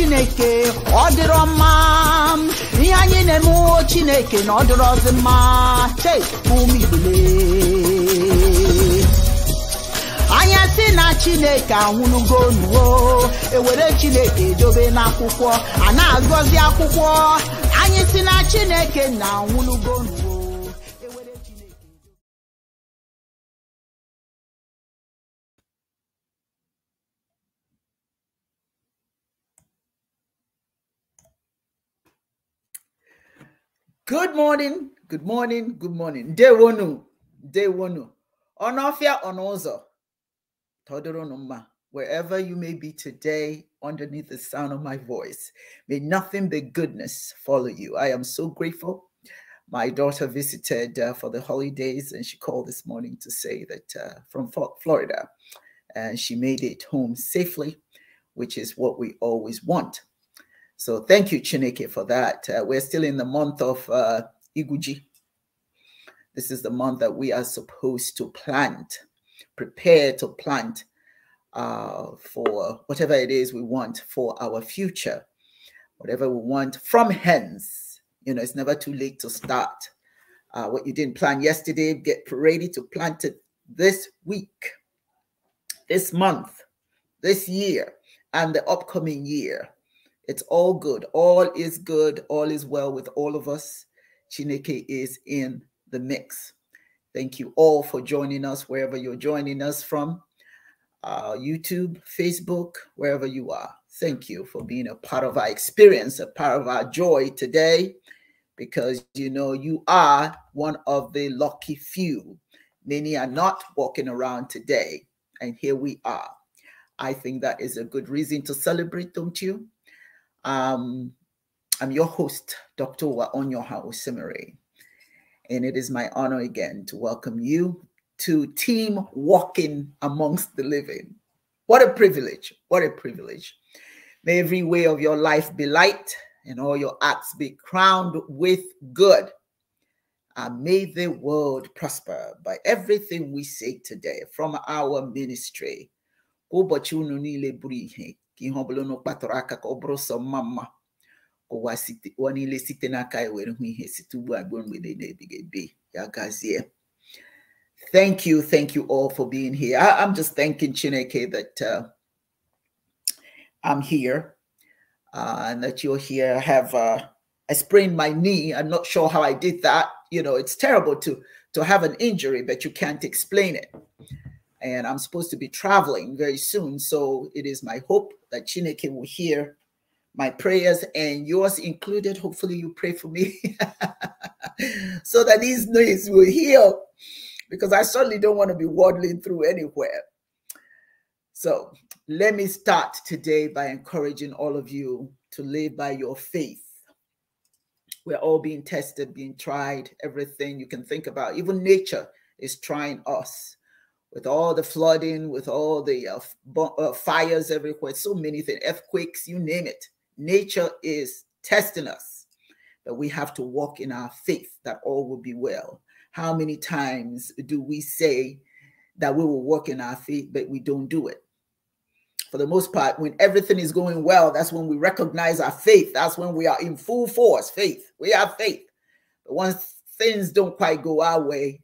chineke ọ dịrọ mma ihe anyị na-emewo chineke na ọ dịrọzi mma cheigbule anya si na chineke anwụnugo ewere chineke dobe n'akwụkwọ a na-agọzi akwụkwọ anyị si na chineke na anwụnugo good morning Day day dewonu onofia onozo todorunuma wherever you may be today underneath the sound of my voice may nothing but goodness follow you i am so grateful my daughter visited uh, for the holidays and she called this morning to say that uh, from florida and she made it home safely which is what we always want so thank you chineke for that uh, we're still in the month of uh, iguji this is the month that we are supposed to plant, prepare to plant uh, for whatever it is we want for our future, whatever we want from hence. You know, it's never too late to start. Uh, what you didn't plan yesterday, get ready to plant it this week, this month, this year, and the upcoming year. It's all good. All is good. All is well with all of us. Chineke is in the mix. Thank you all for joining us wherever you're joining us from uh, YouTube, Facebook, wherever you are. Thank you for being a part of our experience, a part of our joy today, because you know you are one of the lucky few. Many are not walking around today, and here we are. I think that is a good reason to celebrate, don't you? Um, I'm your host, Dr. Waonyoha Osimere. And it is my honor again to welcome you to Team Walking Amongst the Living. What a privilege. What a privilege. May every way of your life be light and all your acts be crowned with good. And may the world prosper by everything we say today from our ministry ụwa ụwa niile site n'aka ya were hụ ihe site ugbu a ruo mgbede na-ebighị ebi ya gazie thank you thank you all for being here I, i'm just thanking chineke that uh, i'm here uh, and that you're here i have uh, i sprained my knee i'm not sure how i did that you know it's terrible to to have an injury but you can't explain it and i'm supposed to be traveling very soon so it is my hope that chineke will hear my prayers and yours included. Hopefully, you pray for me so that these knees will heal because I certainly don't want to be waddling through anywhere. So, let me start today by encouraging all of you to live by your faith. We're all being tested, being tried, everything you can think about, even nature is trying us with all the flooding, with all the uh, uh, fires everywhere, so many things, earthquakes, you name it nature is testing us, that we have to walk in our faith that all will be well. How many times do we say that we will walk in our faith, but we don't do it? For the most part, when everything is going well, that's when we recognize our faith. That's when we are in full force. Faith. We have faith. But once things don't quite go our way,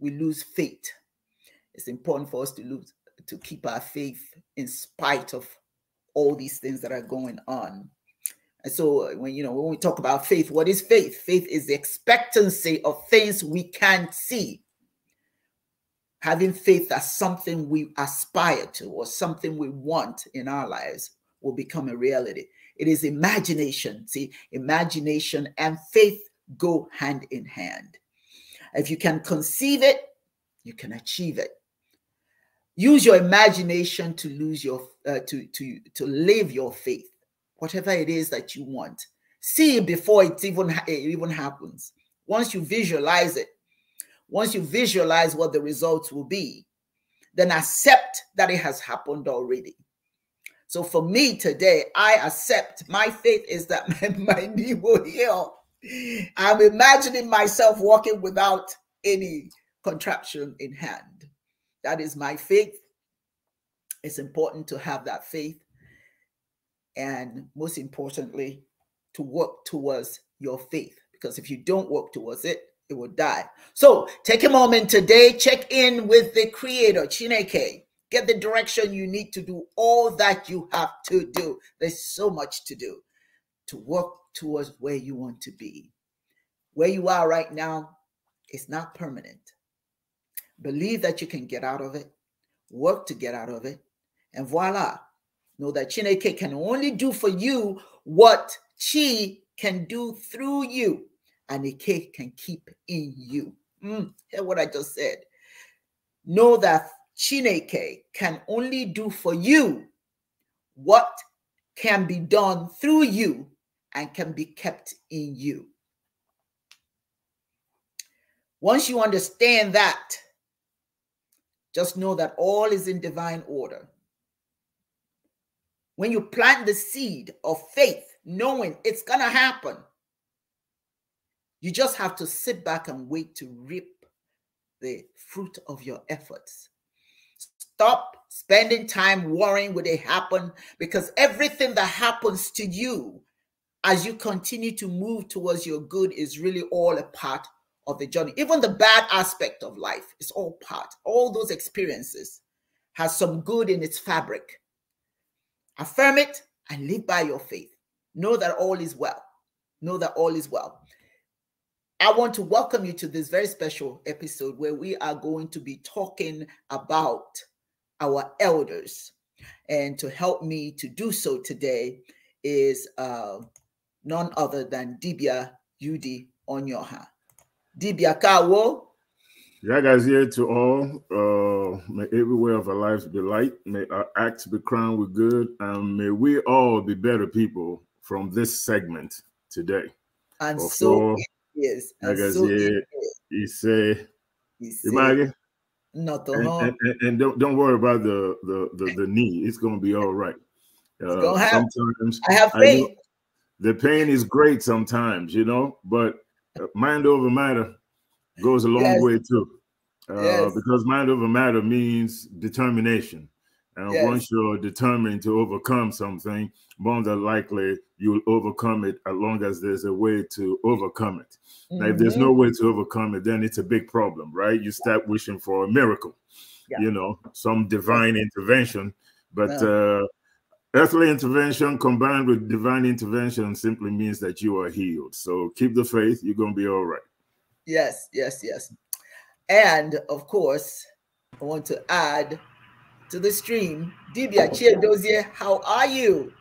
we lose faith. It's important for us to lose to keep our faith in spite of all these things that are going on. And so uh, when you know when we talk about faith, what is faith? Faith is the expectancy of things we can't see. Having faith that something we aspire to or something we want in our lives will become a reality. It is imagination. See, imagination and faith go hand in hand. If you can conceive it, you can achieve it. Use your imagination to lose your uh, to to to live your faith, whatever it is that you want. See it before it even it even happens. Once you visualize it, once you visualize what the results will be, then accept that it has happened already. So for me today, I accept my faith is that my, my knee will heal. I'm imagining myself walking without any contraption in hand. That is my faith it's important to have that faith and most importantly to work towards your faith because if you don't work towards it it will die so take a moment today check in with the creator chineke get the direction you need to do all that you have to do there's so much to do to work towards where you want to be where you are right now is not permanent believe that you can get out of it work to get out of it and voila. Know that Chineke can only do for you what Chi can do through you, and Ike can keep in you. Mm, hear what I just said. Know that Chineke can only do for you what can be done through you and can be kept in you. Once you understand that, just know that all is in divine order. When you plant the seed of faith, knowing it's going to happen, you just have to sit back and wait to reap the fruit of your efforts. Stop spending time worrying will it happen because everything that happens to you as you continue to move towards your good is really all a part of the journey. Even the bad aspect of life is all part. All those experiences has some good in its fabric. Affirm it and live by your faith. Know that all is well. Know that all is well. I want to welcome you to this very special episode where we are going to be talking about our elders. And to help me to do so today is uh, none other than Dibia Yudi Onyoha. Dibia Kawo, Jaga's here to all. Uh, may every way of our lives be light. May our acts be crowned with good. And may we all be better people from this segment today. And Before, so yes, and Jaga's so here. He say, he say not and, and, and, and, don't, don't worry about the, the, the, the knee. It's going to be all right. Uh, sometimes I have faith. I the pain is great sometimes, you know, but uh, mind over matter goes a long yes. way too. Uh, yes. Because mind over matter means determination. And yes. once you're determined to overcome something, more than likely you'll overcome it as long as there's a way to overcome it. Mm -hmm. Now, if there's mm-hmm. no way to overcome it, then it's a big problem, right? You start wishing for a miracle, yeah. you know, some divine intervention. But uh-huh. uh, earthly intervention combined with divine intervention simply means that you are healed. So keep the faith, you're going to be all right. Yes, yes, yes. And of course, I want to add to the stream, Dibia Chiedozie, how are you?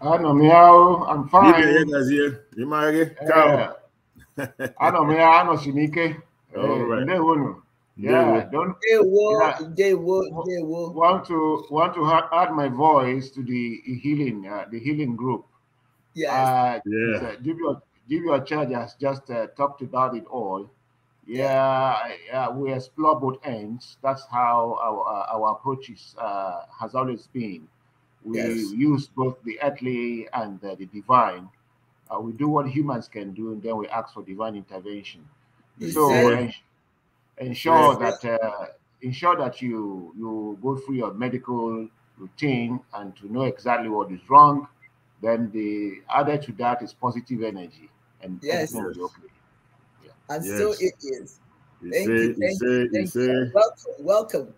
I know me how I'm fine. Dibia Chiedozie, eh, Ciao. I know me how I know Shinike. All eh, right. Yeah, don't they will, they will, they will want to want to add my voice to the healing, uh, the healing group. Yes. Uh, yeah. Uh, give your chargers just uh, talked about it all. Yeah, we explore both ends. That's how our, uh, our approach is, uh, has always been. We yes. use both the earthly and the divine. Uh, we do what humans can do, and then we ask for divine intervention. so ens ensure that uh, ensure that you you go through your medical routine and to know exactly what is wrong. Then the added to that is positive energy and yes, yeah. and yes. so it is. thank you, thank you, thank you. Welcome, welcome,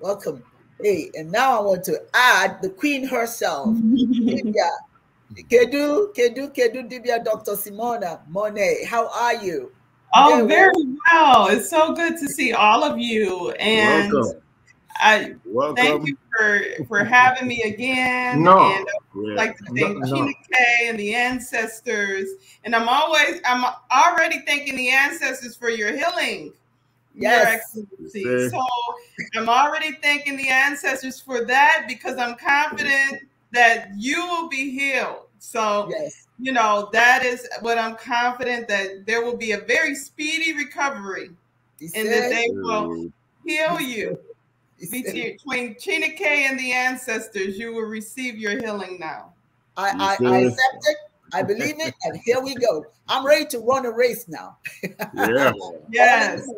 welcome. Hey, and now I want to add the queen herself, Dibia. Kedu, Kedu, Kedu, Dibia, Dr. Simona Monet. How are you? Oh, yeah, very well. well. It's so good to see all of you. And welcome. I Welcome. thank you for for having me again. No, and uh, like to thank no, no. K and the ancestors. And I'm always I'm already thanking the ancestors for your healing. Yes. Your excellency. So I'm already thanking the ancestors for that because I'm confident that you will be healed. So yes. you know that is what I'm confident that there will be a very speedy recovery, and that they will mm. heal you between Chena K and the ancestors, you will receive your healing now. I, I, I accept it. I believe it, and here we go. I'm ready to run a race now. Yeah. yes.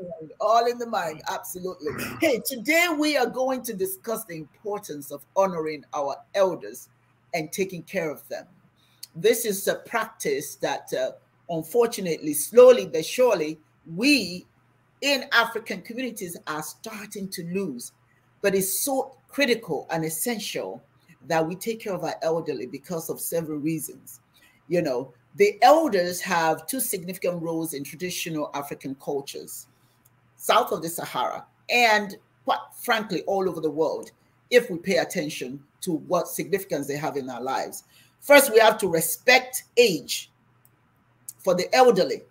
All in the mind, absolutely. Hey, today we are going to discuss the importance of honoring our elders and taking care of them. This is a practice that, uh, unfortunately, slowly but surely, we in African communities are starting to lose. But it's so critical and essential that we take care of our elderly because of several reasons. You know, the elders have two significant roles in traditional African cultures, south of the Sahara, and quite frankly, all over the world, if we pay attention to what significance they have in our lives. First, we have to respect age for the elderly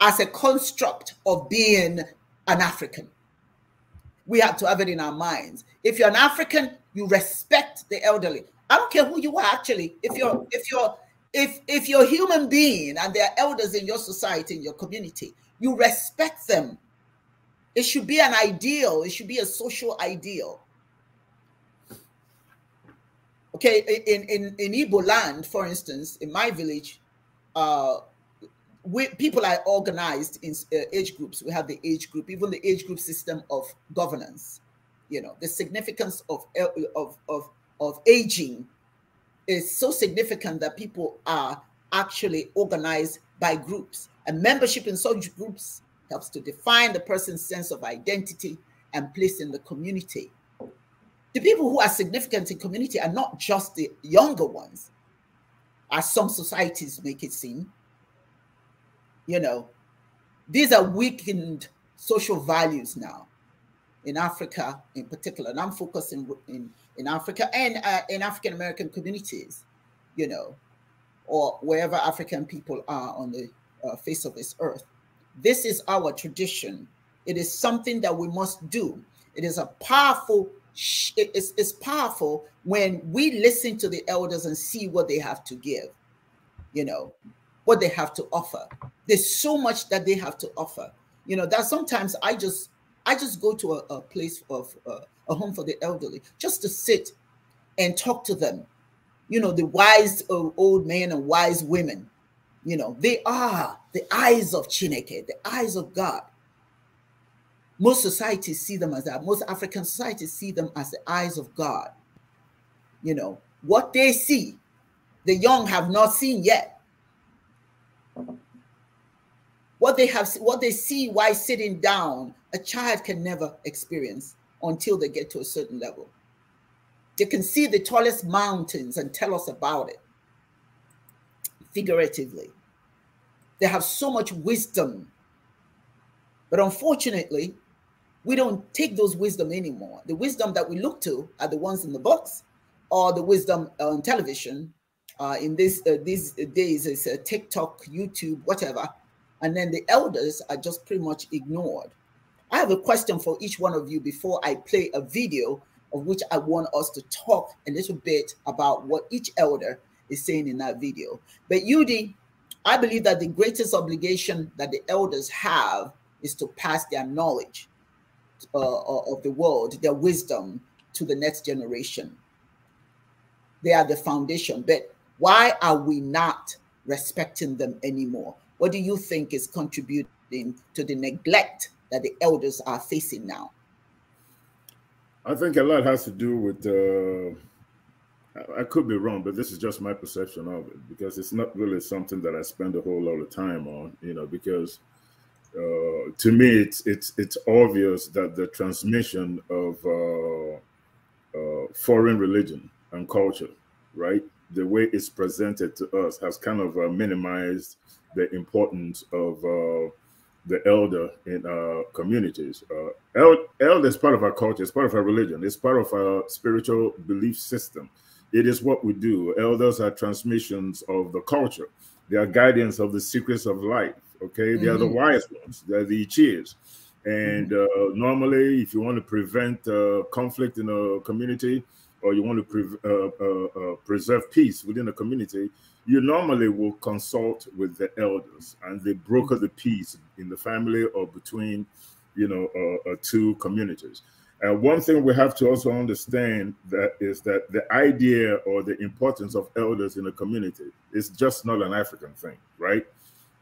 as a construct of being an African we have to have it in our minds. If you're an African, you respect the elderly. I don't care who you are actually. If you're if you're if if you're a human being and there are elders in your society, in your community, you respect them. It should be an ideal, it should be a social ideal. Okay, in in, in Igbo land, for instance, in my village, uh we, people are organized in uh, age groups. We have the age group, even the age group system of governance. You know, the significance of uh, of of of aging is so significant that people are actually organized by groups. And membership in such groups helps to define the person's sense of identity and place in the community. The people who are significant in community are not just the younger ones, as some societies make it seem you know, these are weakened social values now in Africa in particular. And I'm focusing in, in Africa and uh, in African American communities, you know, or wherever African people are on the uh, face of this earth. This is our tradition. It is something that we must do. It is a powerful, it's, it's powerful when we listen to the elders and see what they have to give, you know, what they have to offer. There's so much that they have to offer. You know, that sometimes I just I just go to a, a place of uh, a home for the elderly just to sit and talk to them. You know, the wise uh, old men and wise women. You know, they are the eyes of Chineke, the eyes of God. Most societies see them as that. Most African societies see them as the eyes of God. You know, what they see, the young have not seen yet what they have what they see while sitting down a child can never experience until they get to a certain level they can see the tallest mountains and tell us about it figuratively they have so much wisdom but unfortunately we don't take those wisdom anymore the wisdom that we look to are the ones in the books or the wisdom on television uh, in this uh, these days is uh, tiktok youtube whatever and then the elders are just pretty much ignored. I have a question for each one of you before I play a video of which I want us to talk a little bit about what each elder is saying in that video. But Yudi, I believe that the greatest obligation that the elders have is to pass their knowledge uh, uh of the world, their wisdom to the next generation. They are the foundation. But why are we not respecting them anymore? What do you think is contributing to the neglect that the elders are facing now? I think a lot has to do with. Uh, I could be wrong, but this is just my perception of it because it's not really something that I spend a whole lot of time on. You know, because uh, to me, it's it's it's obvious that the transmission of uh, uh foreign religion and culture, right, the way it's presented to us has kind of uh, minimized the importance of uh, the elder in our communities. Uh, el- elder is part of our culture, it's part of our religion, it's part of our spiritual belief system. It is what we do. Elders are transmissions of the culture, they are guardians of the secrets of life. Okay, they mm-hmm. are the mm-hmm. wise ones, they're the cheers. And mm-hmm. uh, normally, if you want to prevent uh, conflict in a community or you want to pre- uh, uh, uh, preserve peace within a community, you normally will consult with the elders and they broker the peace in the family or between you know uh, uh, two communities and uh, one thing we have to also understand that is that the idea or the importance of elders in a community is just not an african thing right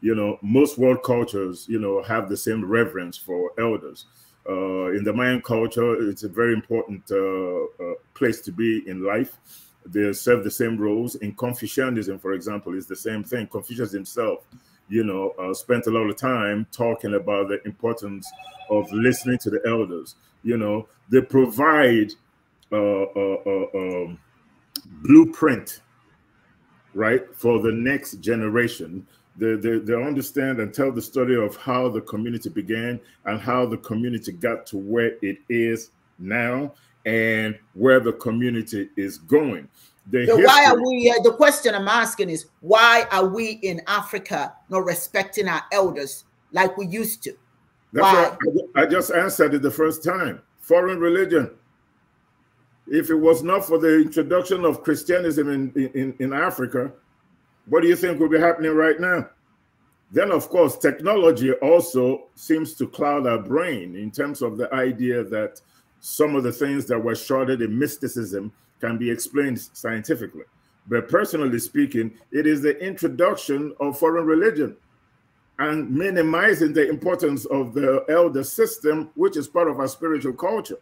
you know most world cultures you know have the same reverence for elders uh, in the mayan culture it's a very important uh, uh, place to be in life they serve the same roles. In Confucianism, for example, is the same thing. Confucius himself, you know, uh, spent a lot of time talking about the importance of listening to the elders. You know, they provide a uh, uh, uh um, blueprint, right, for the next generation. They, they, they understand and tell the story of how the community began and how the community got to where it is now and where the community is going. The so why are we? Uh, the question I'm asking is why are we in Africa not respecting our elders like we used to? That's why? I, I just answered it the first time. Foreign religion. If it was not for the introduction of Christianism in, in, in Africa, what do you think will be happening right now? Then, of course, technology also seems to cloud our brain in terms of the idea that some of the things that were shrouded in mysticism can be explained scientifically. But personally speaking, it is the introduction of foreign religion and minimizing the importance of the elder system, which is part of our spiritual culture.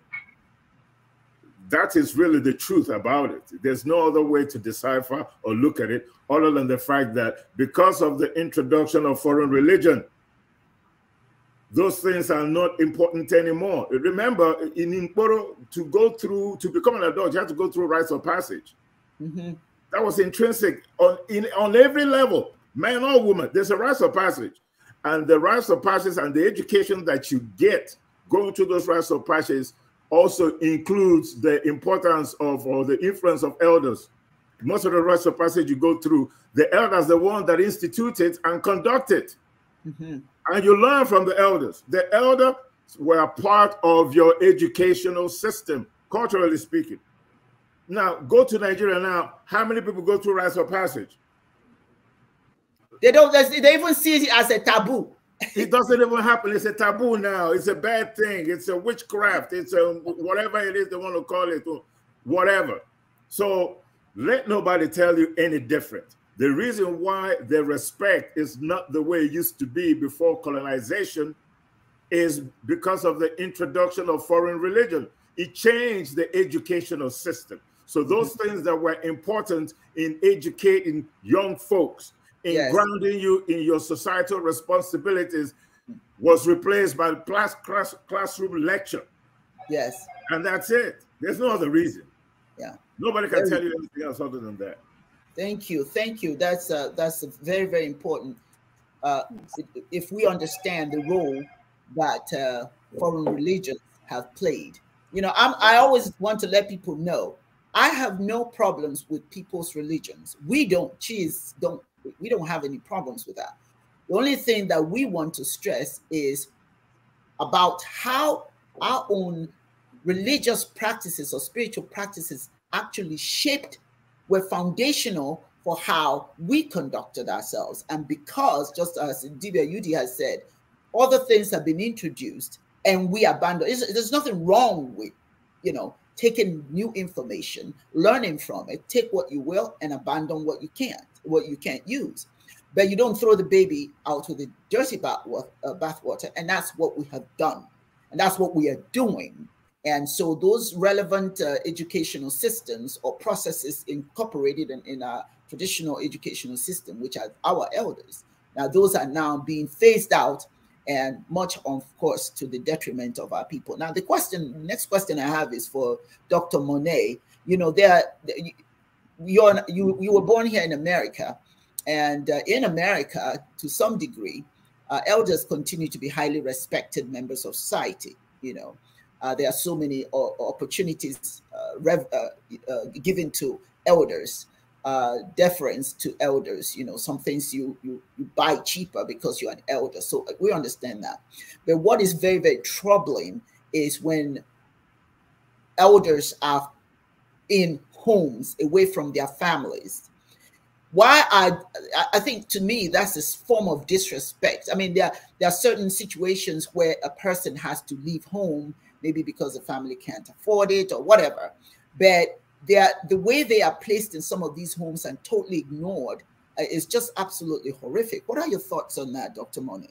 That is really the truth about it. There's no other way to decipher or look at it other than the fact that because of the introduction of foreign religion, those things are not important anymore. Remember, in Imporo, to go through, to become an adult, you have to go through rites of passage. Mm -hmm. That was intrinsic on, in, on every level, man or woman. There's a rites of passage. And the rites of passage and the education that you get going through those rites of passage also includes the importance of or the influence of elders. Most of the rites of passage you go through, the elders, the one that instituted and conducted. Mm -hmm. And you learn from the elders. The elders were part of your educational system, culturally speaking. Now, go to Nigeria now. How many people go through rites of passage? They don't, they even see it as a taboo. it doesn't even happen. It's a taboo now. It's a bad thing. It's a witchcraft. It's a whatever it is they want to call it, whatever. So let nobody tell you any different. The reason why the respect is not the way it used to be before colonization is because of the introduction of foreign religion. It changed the educational system. So those mm-hmm. things that were important in educating young folks, in yes. grounding you in your societal responsibilities, was replaced by class, class, classroom lecture. Yes. And that's it. There's no other reason. Yeah. Nobody can tell you anything else other than that. Thank you, thank you. That's uh, that's very very important. Uh, if we understand the role that uh, foreign religions have played, you know, I'm, I always want to let people know I have no problems with people's religions. We don't cheese don't we don't have any problems with that. The only thing that we want to stress is about how our own religious practices or spiritual practices actually shaped were foundational for how we conducted ourselves. And because, just as Divya Udi has said, other things have been introduced and we abandon. There's nothing wrong with, you know, taking new information, learning from it, take what you will and abandon what you can't, what you can't use. But you don't throw the baby out with the dirty uh, bathwater. And that's what we have done. And that's what we are doing and so those relevant uh, educational systems or processes incorporated in, in our traditional educational system, which are our elders, now those are now being phased out and much of course to the detriment of our people. Now the question, next question I have is for Dr. Monet. You know, there you're, you, you were born here in America and uh, in America, to some degree, uh, elders continue to be highly respected members of society, you know, uh, there are so many uh, opportunities uh, rev, uh, given to elders, deference to elders. You know, some things you, you, you buy cheaper because you're an elder. So we understand that. But what is very very troubling is when elders are in homes away from their families why I I think to me that's a form of disrespect. I mean, there there are certain situations where a person has to leave home maybe because the family can't afford it or whatever. But they are, the way they are placed in some of these homes and totally ignored uh, is just absolutely horrific. What are your thoughts on that, Dr. Monet?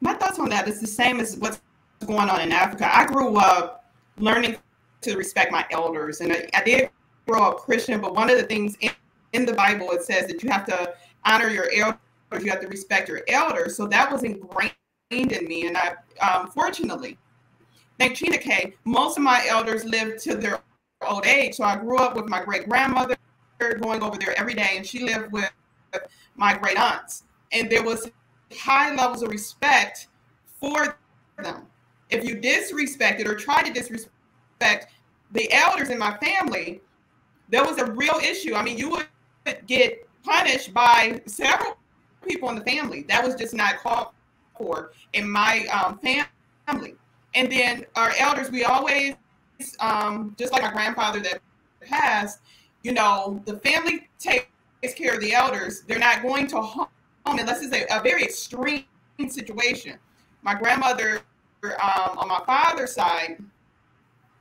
My thoughts on that is the same as what's going on in Africa. I grew up learning to respect my elders, and I, I did grow up Christian, but one of the things in, in the Bible it says that you have to honor your elders, you have to respect your elders. So that was ingrained in me, and I, um, fortunately, Thank K. most of my elders lived to their old age. So I grew up with my great grandmother going over there every day, and she lived with my great aunts. And there was high levels of respect for them. If you disrespected or tried to disrespect the elders in my family, there was a real issue. I mean, you would get punished by several people in the family. That was just not called for in my um, family. And then our elders, we always, um, just like our grandfather that passed, you know, the family takes care of the elders. They're not going to home unless it's a, a very extreme situation. My grandmother um, on my father's side.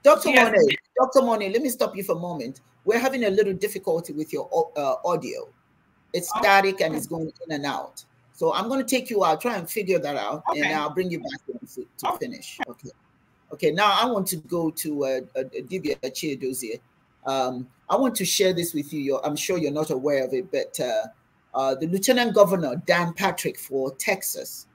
Dr. Monet, Dr. Monet, let me stop you for a moment. We're having a little difficulty with your uh, audio. It's oh. static and it's going in and out. So I'm going to take you out, try and figure that out, okay. and I'll bring you back to, to finish. Okay. Okay. Now I want to go to a uh, uh, Divya chair Um, I want to share this with you. You're, I'm sure you're not aware of it, but uh, uh, the Lieutenant Governor, Dan Patrick for Texas,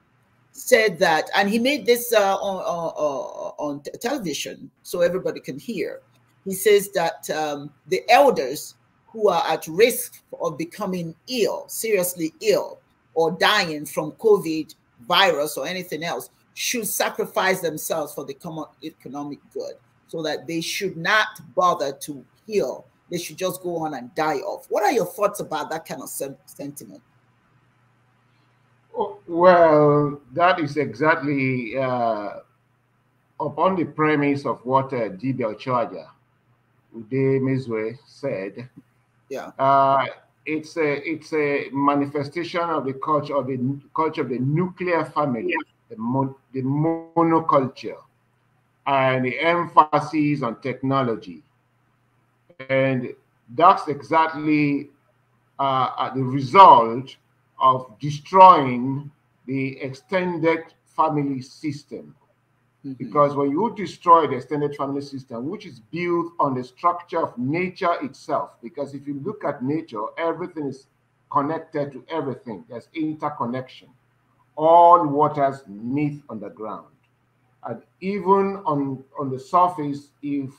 said that, and he made this uh, on, on, on, television so everybody can hear. He says that um, the elders who are at risk of becoming ill, seriously ill, or dying from COVID virus or anything else should sacrifice themselves for the common economic good so that they should not bother to heal. They should just go on and die off. What are your thoughts about that kind of sentiment? Oh, well, that is exactly uh, upon the premise of what uh, D.B. Charger Ude Mizwe said. Yeah. Uh, it's a it's a manifestation of the culture of the culture of the nuclear family, yeah. the, mon, the monoculture, and the emphasis on technology, and that's exactly uh, uh the result of destroying the extended family system Mm-hmm. Because when you destroy the extended family system, which is built on the structure of nature itself, because if you look at nature, everything is connected to everything, there's interconnection. All waters meet on the ground. And even on, on the surface, if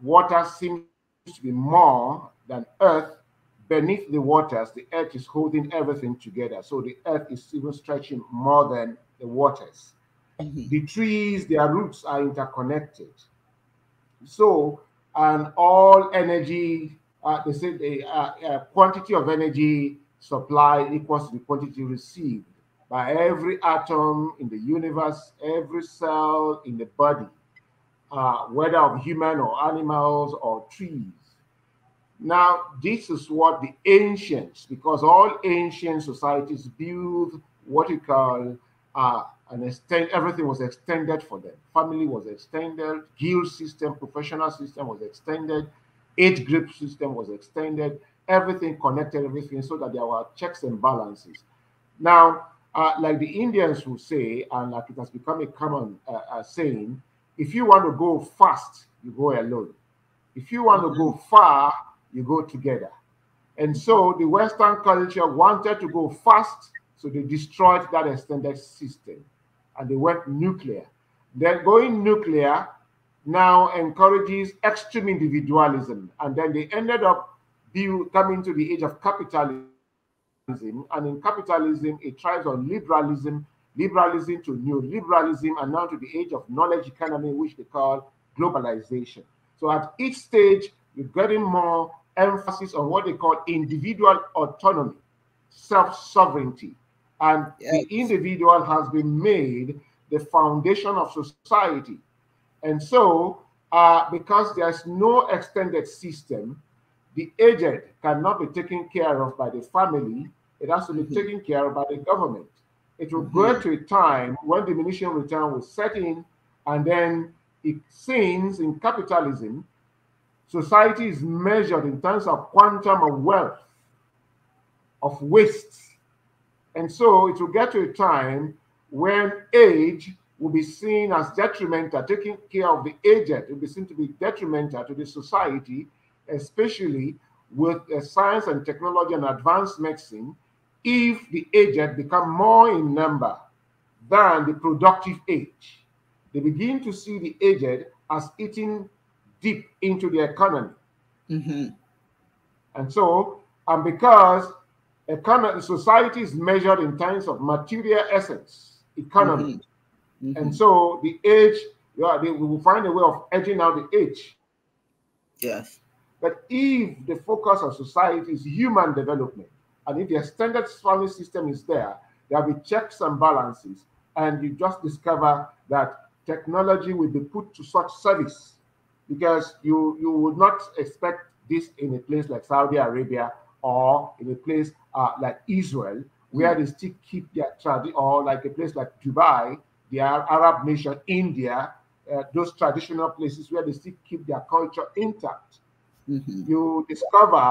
water seems to be more than earth, beneath the waters, the earth is holding everything together. So the earth is even stretching more than the waters. -hmm. The trees, their roots are interconnected. So, and all energy, uh, they say the uh, uh, quantity of energy supplied equals the quantity received by every atom in the universe, every cell in the body, uh, whether of human or animals or trees. Now, this is what the ancients, because all ancient societies build what you call uh, and extend, everything was extended for them. Family was extended, guild system, professional system was extended, age group system was extended, everything connected, everything so that there were checks and balances. Now, uh, like the Indians will say, and like it has become a common uh, uh, saying, if you want to go fast, you go alone. If you want to go mm-hmm. far, you go together. And so the Western culture wanted to go fast, so they destroyed that extended system and they went nuclear. Then going nuclear now encourages extreme individualism. And then they ended up coming to the age of capitalism. And in capitalism, it tries on liberalism, liberalism to neoliberalism, and now to the age of knowledge economy, which they call globalization. So at each stage, you're getting more emphasis on what they call individual autonomy, self sovereignty, and yes. the individual has been made the foundation of society. And so, uh, because there's no extended system, the aged cannot be taken care of by the family. It has to be mm -hmm. taken care of by the government. It will mm -hmm. go mm-hmm. to a time when diminishing return will set in, and then it seems in capitalism, society is measured in terms of quantum of wealth, of waste, and so it will get to a time when age will be seen as detrimental, taking care of the aged will be seen to be detrimental to the society, especially with uh, science and technology and advanced medicine, if the aged become more in number than the productive age. They begin to see the aged as eating deep into the economy. Mm -hmm. And so, and because economy, society is measured in terms of material essence, economy. Mm -hmm. Mm -hmm. And so the age, yeah, they will find a way of edging out the age. Yes. But if the focus of society is human development, and if the extended family system is there, there'll be checks and balances, and you just discover that technology will be put to such service because you, you would not expect this in a place like Saudi Arabia or in a place uh, like Israel, where hmm. they still keep their tradition, or like a place like Dubai, the Arab nation, India, uh, those traditional places where they still keep their culture intact. Mm -hmm. You discover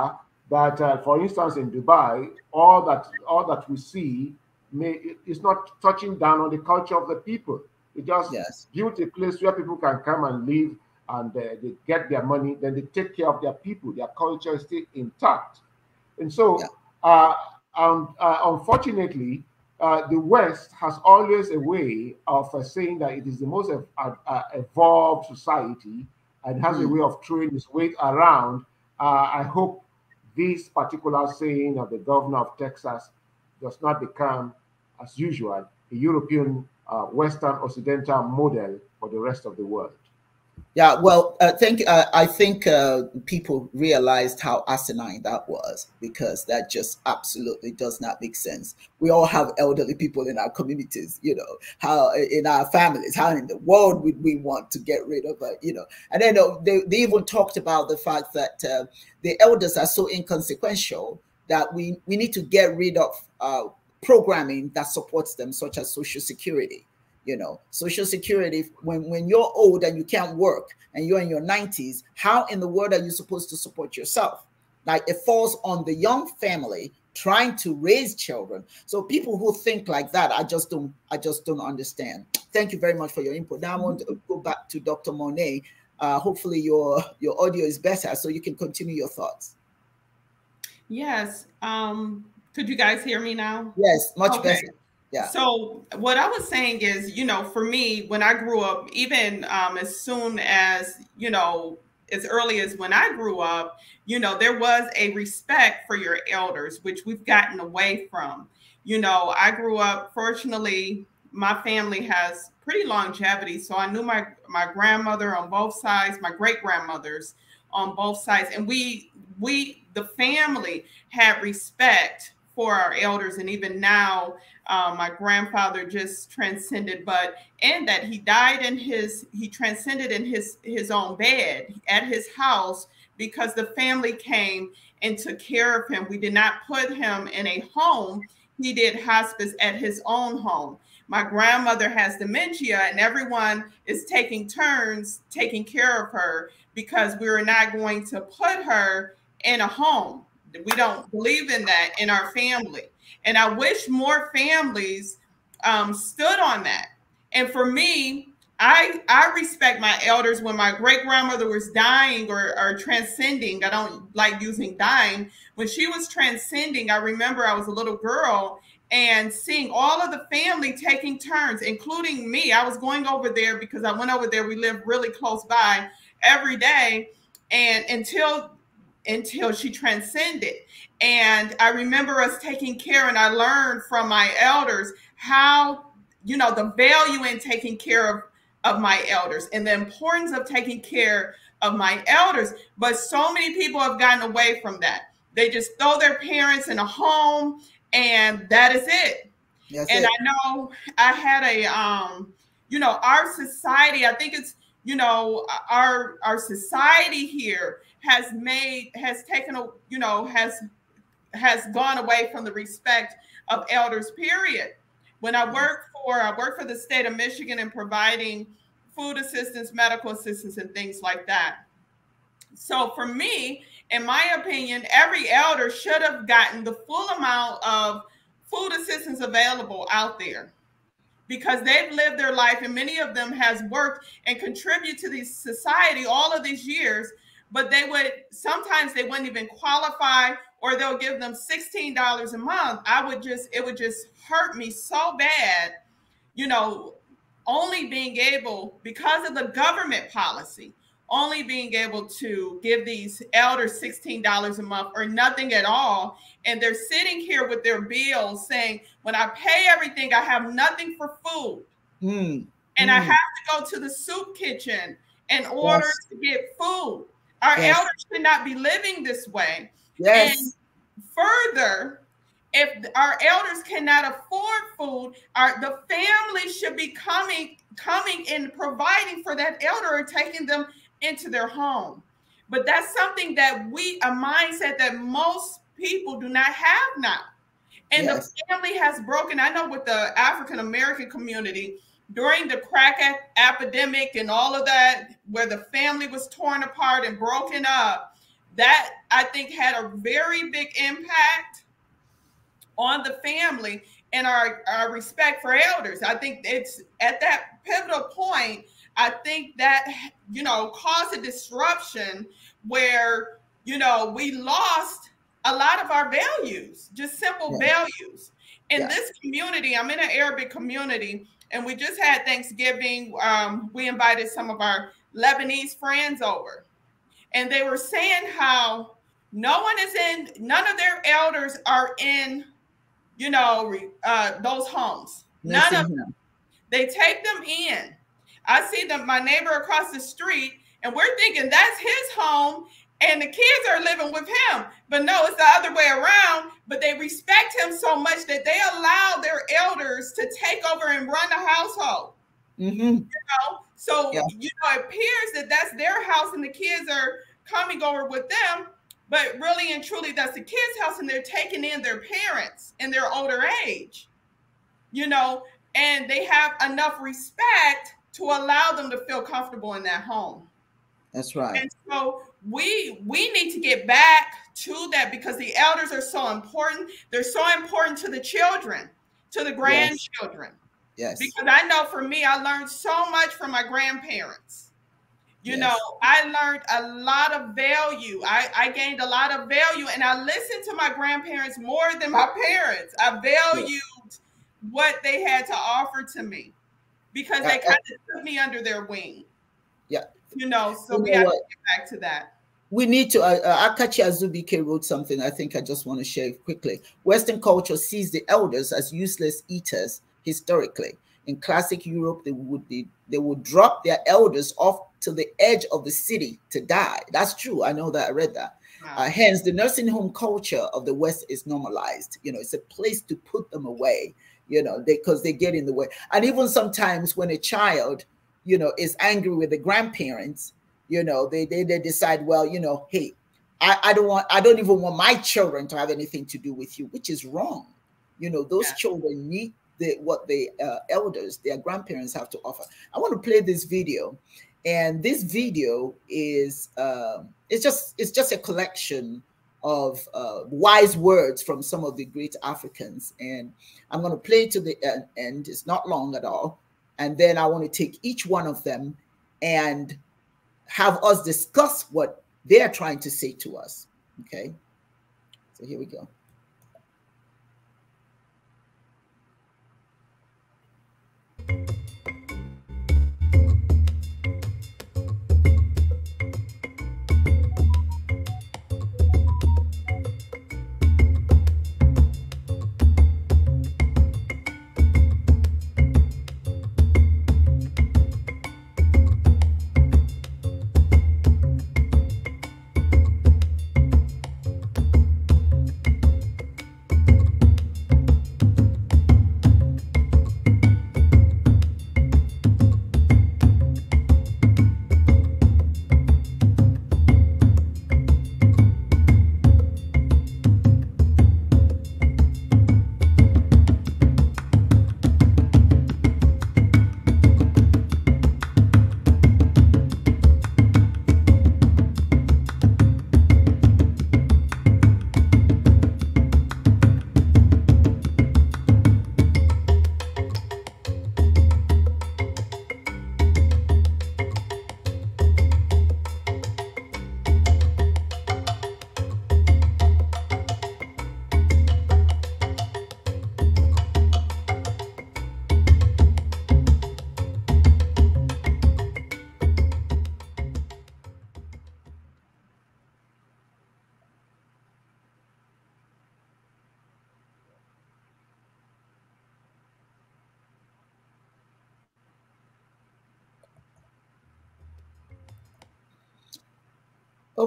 that, uh, for instance, in Dubai, all that all that we see may, is not touching down on the culture of the people. It just yes. built a place where people can come and live, and uh, they get their money, then they take care of their people. Their culture is still intact, and so. Yeah and uh, um, uh, unfortunately, uh, the West has always a way of uh, saying that it is the most uh, evolved society and has mm. a hmm. way of throwing its weight around. I hope this particular saying of the governor of Texas does not become, as usual, a European Western Occidental model for the rest of the world. Yeah, well, I uh, think uh, I think uh, people realized how asinine that was because that just absolutely does not make sense. We all have elderly people in our communities, you know, how in our families, how in the world would we want to get rid of, uh, you know? And then uh, they, they even talked about the fact that uh, the elders are so inconsequential that we we need to get rid of uh, programming that supports them, such as social security you know social security when when you're old and you can't work and you're in your 90s how in the world are you supposed to support yourself like it falls on the young family trying to raise children so people who think like that i just don't i just don't understand thank you very much for your input now i want to go back to dr monet uh, hopefully your your audio is better so you can continue your thoughts yes um could you guys hear me now yes much okay. better yeah. So what I was saying is, you know, for me, when I grew up, even um, as soon as you know, as early as when I grew up, you know, there was a respect for your elders, which we've gotten away from. You know, I grew up. Fortunately, my family has pretty longevity, so I knew my my grandmother on both sides, my great grandmothers on both sides, and we we the family had respect for our elders. And even now, uh, my grandfather just transcended, but and that he died in his, he transcended in his, his own bed at his house because the family came and took care of him. We did not put him in a home. He did hospice at his own home. My grandmother has dementia, and everyone is taking turns taking care of her because we were not going to put her in a home we don't believe in that in our family. And I wish more families um, stood on that. And for me, I, I respect my elders when my great grandmother was dying or, or transcending. I don't like using dying. When she was transcending, I remember I was a little girl and seeing all of the family taking turns, including me. I was going over there because I went over there. We lived really close by every day. And until until she transcended. And I remember us taking care, and I learned from my elders how, you know, the value in taking care of, of my elders and the importance of taking care of my elders. But so many people have gotten away from that. They just throw their parents in a home, and that is it. That's and it. I know I had a, um, you know, our society, I think it's, you know, our our society here has made has taken a you know has has gone away from the respect of elders period when i work for i work for the state of michigan in providing food assistance medical assistance and things like that so for me in my opinion every elder should have gotten the full amount of food assistance available out there because they've lived their life and many of them has worked and contributed to the society all of these years but they would sometimes they wouldn't even qualify or they'll give them $16 a month i would just it would just hurt me so bad you know only being able because of the government policy only being able to give these elders $16 a month or nothing at all and they're sitting here with their bills saying when i pay everything i have nothing for food mm. and mm. i hmm. have to go to the soup kitchen in order yes. to get food our yes. elders should not be living this way. Yes. And further, if our elders cannot afford food, our the family should be coming coming and providing for that elder and taking them into their home. But that's something that we a mindset that most people do not have now. And yes. the family has broken. I know with the African American community, during the crack epidemic and all of that, where the family was torn apart and broken up, that I think had a very big impact on the family and our, our respect for elders. I think it's at that pivotal point, I think that, you know, caused a disruption where, you know, we lost a lot of our values, just simple yeah. values. In yeah. this community, I'm in an Arabic community and we just had Thanksgiving. Um, we invited some of our Lebanese friends over, and they were saying how no one is in, none of their elders are in, you know, uh, those homes. None of them. They take them in. I see them, my neighbor across the street, and we're thinking that's his home and the kids are living with him. But no, it's the other way around. But they respect him so much that they allow their elders to take over and run the household. Mm-hmm. You know, so yeah. you know, it appears that that's their house and the kids are coming over with them. But really and truly, that's the kids' house, and they're taking in their parents in their older age. You know, and they have enough respect to allow them to feel comfortable in that home. That's right. And so we we need to get back to that because the elders are so important. They're so important to the children, to the grandchildren. Yes. yes. Because I know for me, I learned so much from my grandparents. You yes. know, I learned a lot of value. I, I gained a lot of value and I listened to my grandparents more than my parents. I valued yes. what they had to offer to me because they kind of took me under their wing. Yeah. You know, so you we know have what? to get back to that we need to, uh, uh, Akachi Azubike wrote something I think I just want to share quickly. Western culture sees the elders as useless eaters historically. In classic Europe, they would be, they would drop their elders off to the edge of the city to die. That's true. I know that I read that. Wow. Uh, hence, the nursing home culture of the West is normalized. You know, it's a place to put them away. You know, because they, they get in the way. And even sometimes when a child, you know, is angry with the grandparents, you know they they, they decide well you know hey I, I don't want i don't even want my children to have anything to do with you which is wrong you know those yeah. children need the, what the uh, elders their grandparents have to offer i want to play this video and this video is uh, it's just it's just a collection of uh, wise words from some of the great Africans. And I'm going to play to the end. It's not long at all. And then I want to take each one of them and have us discuss what they're trying to say to us. Okay. So here we go.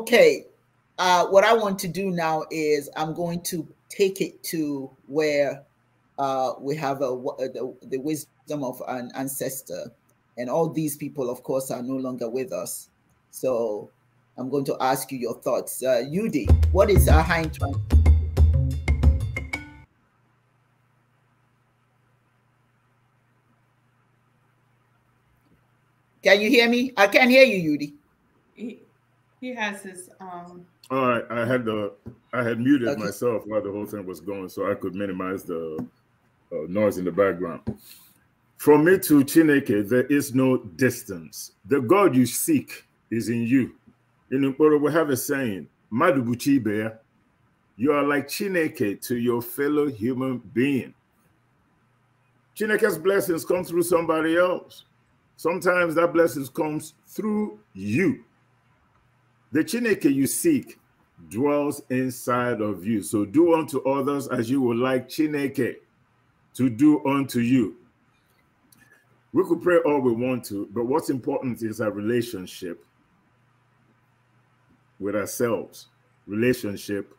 okay, uh, what I want to do now is I'm going to take it to where uh, we have a, the, the wisdom of an ancestor. And all these people, of course, are no longer with us. So I'm going to ask you your thoughts. Uh, Yudi, what is Ahain trying Can you hear me? I can't hear you, Yudi. He has his um. All oh, right, I had the I had muted okay. myself while the whole thing was going, so I could minimize the uh, noise in the background. From me to Chineke, there is no distance. The God you seek is in you. In Nkporo, we have a saying, bear, you are like Chineke to your fellow human being. Chineke's blessings come through somebody else. Sometimes that blessings comes through you. The Chineke you seek dwells inside of you. So do unto others as you would like Chineke to do unto you. We could pray all we want to, but what's important is our relationship with ourselves, relationship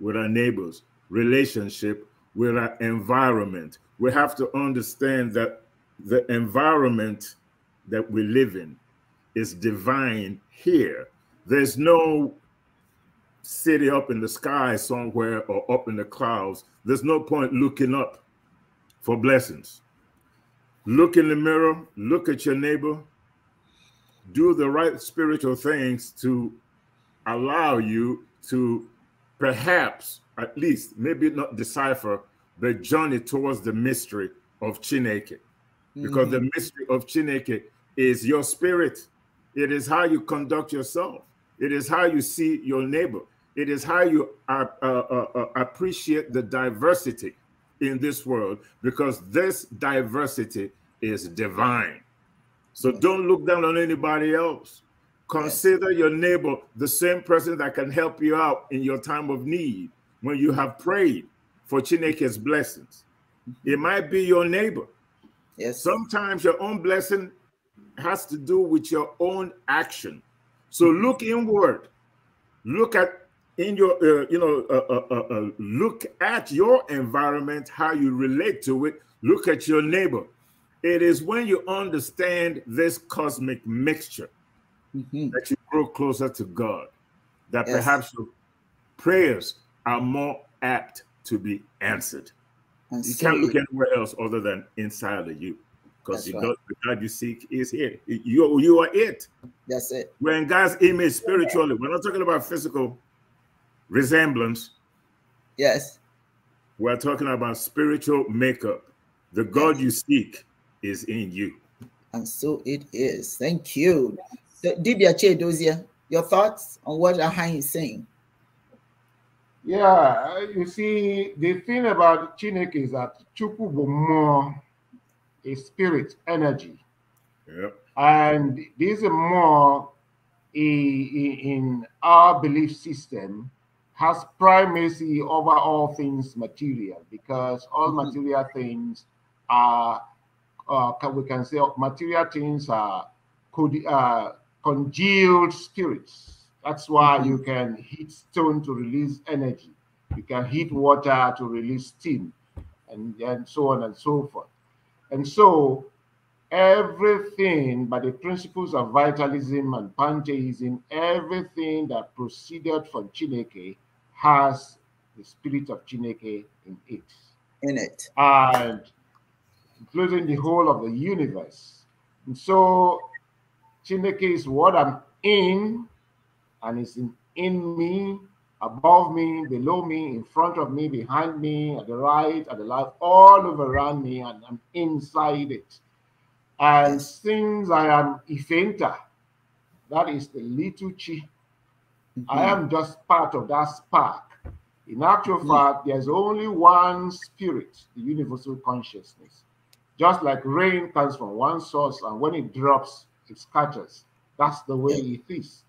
with our neighbors, relationship with our environment. We have to understand that the environment that we live in is divine here there's no city up in the sky somewhere or up in the clouds. There's no point looking up for blessings. Look in the mirror, look at your neighbor, do the right spiritual things to allow you to perhaps, at least, maybe not decipher, but journey towards the mystery of Chineke. Because mm -hmm. the mystery of Chineke is your spirit, it is how you conduct yourself. It is how you see your neighbor. It is how you uh, uh, uh, appreciate the diversity in this world because this diversity is divine. So don't look down on anybody else. Consider your neighbor the same person that can help you out in your time of need when you have prayed for Chineke's blessings. It mm-hmm. might be your neighbor. Yes. Sometimes your own blessing has to do with your own action. So look inward. Look at in your uh, you know uh uh, uh, uh, look at your environment, how you relate to it. Look at your neighbor. It is when you understand this cosmic mixture mm -hmm. that you grow closer to God. That yes. perhaps your prayers are more apt to be answered. you can't look anywhere else other than inside of you because the, right. God you seek is here. You, you are it. That's it. We're in God's image spiritually. We're not talking about physical resemblance. Yes. We're talking about spiritual makeup. The God yes. you seek is in you. And so it is. Thank you. So, Dibia Chedozia, your thoughts on what Ahan is saying? Yeah, you see, the thing about Chinek is that Chukwu more a spirit, energy. Yep. And this is more in our belief system has primacy over all things material because all mm-hmm. material things are, uh, we can say, material things are could uh, congealed spirits. That's why mm-hmm. you can heat stone to release energy. You can heat water to release steam, and, and so on and so forth. And so everything by the principles of vitalism and pantheism, everything that proceeded from Chineke has the spirit of Chineke in it. In it. And including the whole of the universe. And so Chineke is what I'm in and is in, in me above me, below me, in front of me, behind me, at the right, at the left, all over around me, and I'm inside it. And since I am Ifenta, that is the little chi, mm -hmm. I mm-hmm. am just part of that spark. In actual mm -hmm. fact, there's only one spirit, the universal consciousness. Just like rain comes from one source, and when it drops, it scatters. That's the way it is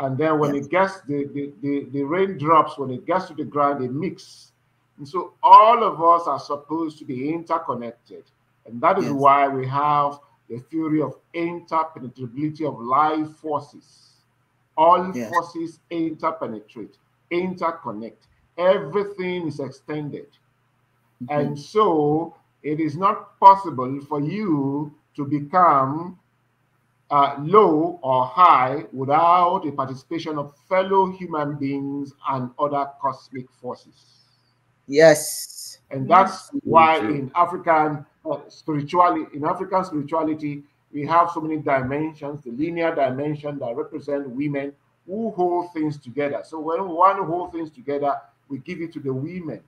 and then when yes. it gets the, the, the, the rain drops when it gets to the ground it mixes and so all of us are supposed to be interconnected and that is yes. why we have the theory of interpenetrability of life forces all yes. forces interpenetrate interconnect everything is extended mm -hmm. and so it is not possible for you to become uh, low or high without the participation of fellow human beings and other cosmic forces. Yes. And that's yes. why in African uh, spirituality, in African spirituality, we have so many dimensions, the linear dimension that represent women who hold things together. So when one holds things together, we give it to the women.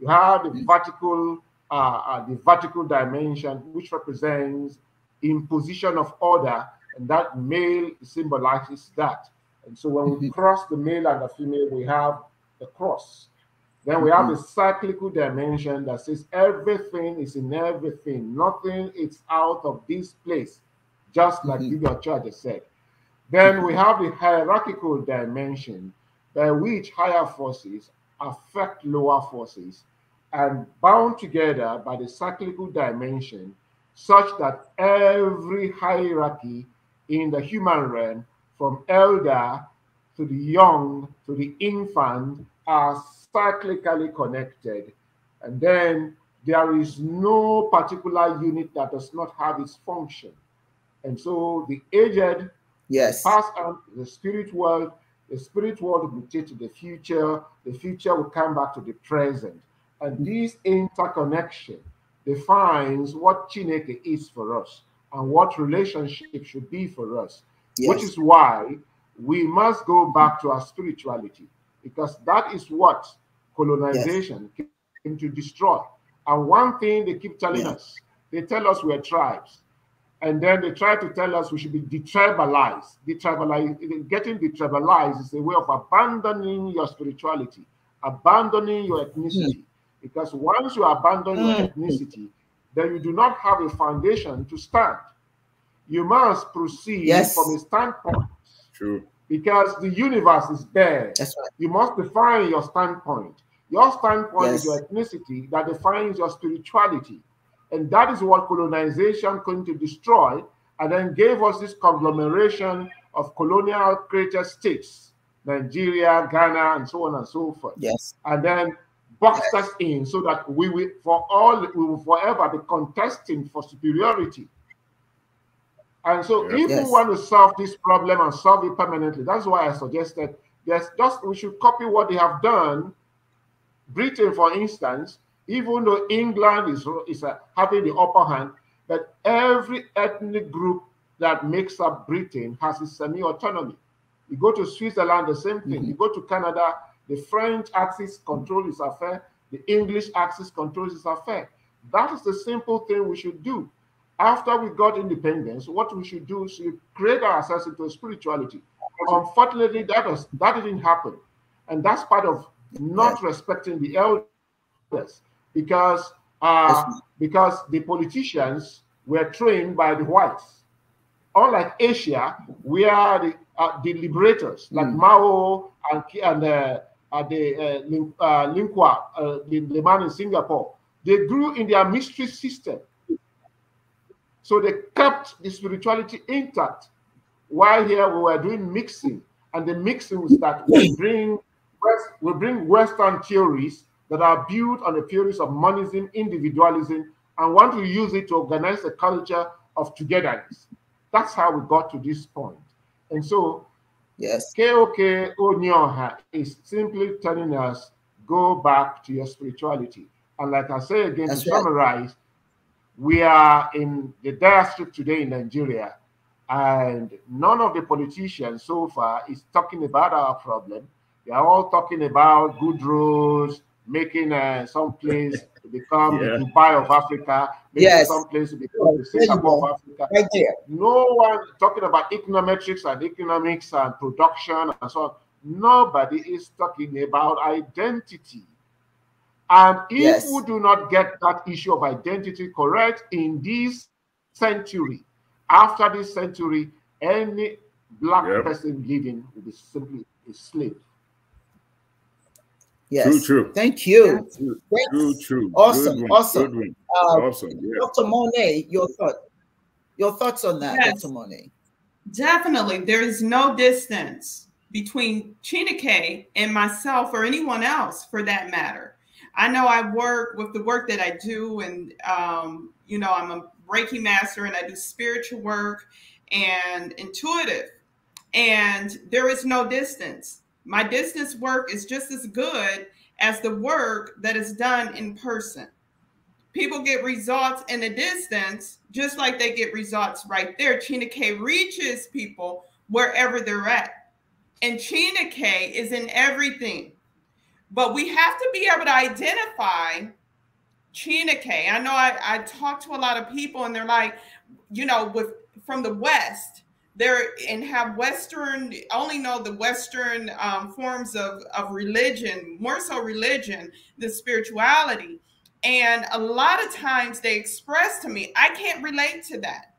You have the vertical, uh, uh, the vertical dimension, which represents imposition of order and that male symbolizes that. And so when we mm-hmm. cross the male and the female, we have the cross. Then we have mm-hmm. a cyclical dimension that says everything is in everything, nothing is out of this place, just like mm-hmm. Charger said. Then we mm-hmm. have the hierarchical dimension by which higher forces affect lower forces and bound together by the cyclical dimension such that every hierarchy in the human realm, from elder to the young to the infant, are cyclically connected. And then there is no particular unit that does not have its function. And so the aged, yes, pass on the spirit world, the spirit world will take to the future, the future will come back to the present. And this interconnection defines what Chineke is for us and what relationship should be for us, yes. which is why we must go back to our spirituality because that is what colonization yes. came to destroy. And one thing they keep telling yes. us, they tell us we're tribes. And then they try to tell us we should be detribalized. tribalized getting detribalized is a way of abandoning your spirituality, abandoning your hmm. ethnicity. Mm. Because once you abandon mm. your hmm. ethnicity, then you do not have a foundation to stand. You must proceed yes. from a standpoint. True. Because the universe is there. That's right. You must define your standpoint. Your standpoint yes. is your ethnicity that defines your spirituality. And that is what colonization going to destroy and then gave us this conglomeration of colonial created states, Nigeria, Ghana, and so on and so forth. Yes. And then box yes. us in so that we will for all we will forever be contesting for superiority. And so yes. if yes. we want to solve this problem and solve it permanently, that's why I suggested there's just we should copy what they have done. Britain, for instance, even though England is, is uh, having the upper hand, but every ethnic group that makes up Britain has its semi-autonomy. You go to Switzerland, the same thing. Mm -hmm. You go to Canada, the French axis controls its affair. The English axis controls its affair. That is the simple thing we should do. After we got independence, what we should do is create ourselves into spirituality. Unfortunately, that, was, that didn't happen. And that's part of not respecting the elders because, uh, because the politicians were trained by the whites. Unlike Asia, we are the, uh, the liberators, like mm. Mao and, and uh, at uh, the uh, Lingua, uh, uh the, man in Singapore. They grew in their mystery system. So they kept the spirituality intact. While here we were doing mixing, and the mixing was that we bring West, we bring Western theories that are built on the theories of monism, individualism, and want to use it to organize a culture of togetherness. That's how we got to this point. And so Yes. KOK Onyoha is simply telling us go back to your spirituality. And like I say again, That's to right. summarize, we are in the diaspora today in Nigeria, and none of the politicians so far is talking about our problem. They are all talking about good roads, making uh, some planes to become yeah. Dubai of Africa, making yes. some planes to become the Singapore of Africa. No one talking about econometrics and economics and production and so on. Nobody is talking about identity. And if yes. we do not get that issue of identity correct in this century, after this century, any black yep. person living will be simply a slave. Yes. True, true. Thank you. True, true. true. Awesome. One, awesome. Uh, awesome. Yeah. Dr. Monet, your thought. Your thoughts on that, yes. Dr. Monet. Definitely. There is no distance between Chinike and myself or anyone else for that matter. I know I work with the work that I do, and um, you know, I'm a Reiki master and I do spiritual work and intuitive, and there is no distance. My distance work is just as good as the work that is done in person. People get results in the distance, just like they get results right there. Chena K reaches people wherever they're at. And Chena K is in everything. But we have to be able to identify Chena K. I know I, I talk to a lot of people and they're like, you know, with from the West, there and have Western only know the Western um, forms of of religion, more so religion than spirituality. And a lot of times they express to me, I can't relate to that.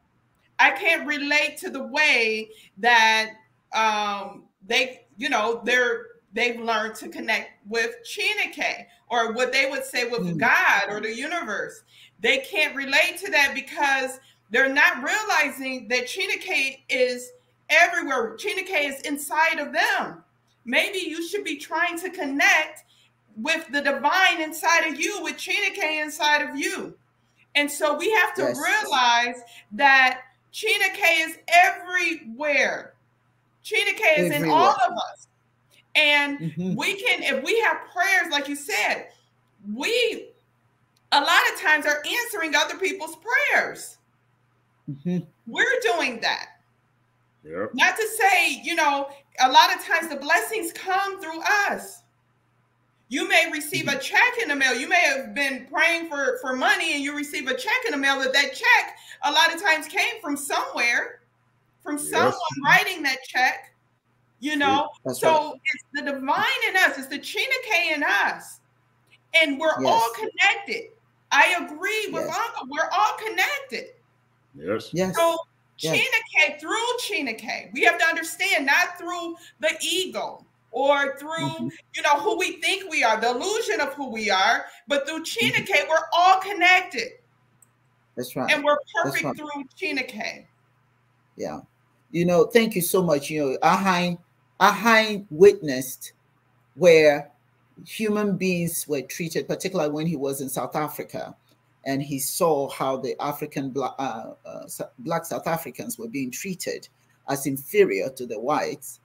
I can't relate to the way that um, they, you know, they're they've learned to connect with Chinike or what they would say with mm. God or the universe. They can't relate to that because they're not realizing that Chena is everywhere. Chena is inside of them. Maybe you should be trying to connect with the divine inside of you, with Chena inside of you. And so we have to yes. realize that Chena is everywhere. Chena is everywhere. in all of us. And mm-hmm. we can, if we have prayers, like you said, we a lot of times are answering other people's prayers. Mm-hmm. We're doing that. Yep. Not to say, you know, a lot of times the blessings come through us. You may receive a mm-hmm. check in the mail. You may have been praying for, for money and you receive a check in the mail, but that check a lot of times came from somewhere, from yes. someone writing that check, you know? That's so right. it's the divine in us, it's the Chinake in us. And we're yes. all connected. I agree with yes. Uncle. We're all connected. Yes. Yes. So yes. Chineke, through Chineke, we have to understand not through the ego or through mm-hmm. you know who we think we are, the illusion of who we are, but through Chineke, mm-hmm. we're all connected. That's right. And we're perfect right. through Chineke. Yeah. You know, thank you so much. You know, Ahine, Ahine witnessed where human beings were treated, particularly when he was in South Africa and he saw how the African black, uh, uh, black South Africans were being treated as inferior to the whites,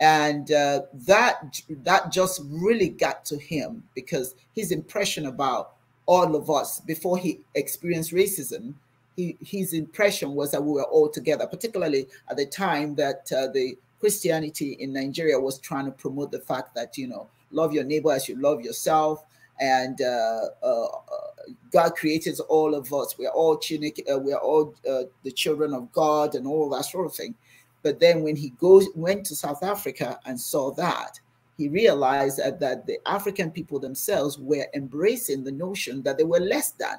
and uh, that that just really got to him because his impression about all of us before he experienced racism, he, his impression was that we were all together, particularly at the time that uh, the Christianity in Nigeria was trying to promote the fact that you know love your neighbor as you love yourself and uh, uh, uh, God created all of us. We're all Chinook, uh, we're all uh, the children of God, and all that sort of thing. But then when he goes went to South Africa and saw that, he realized that, that the African people themselves were embracing the notion that they were less than,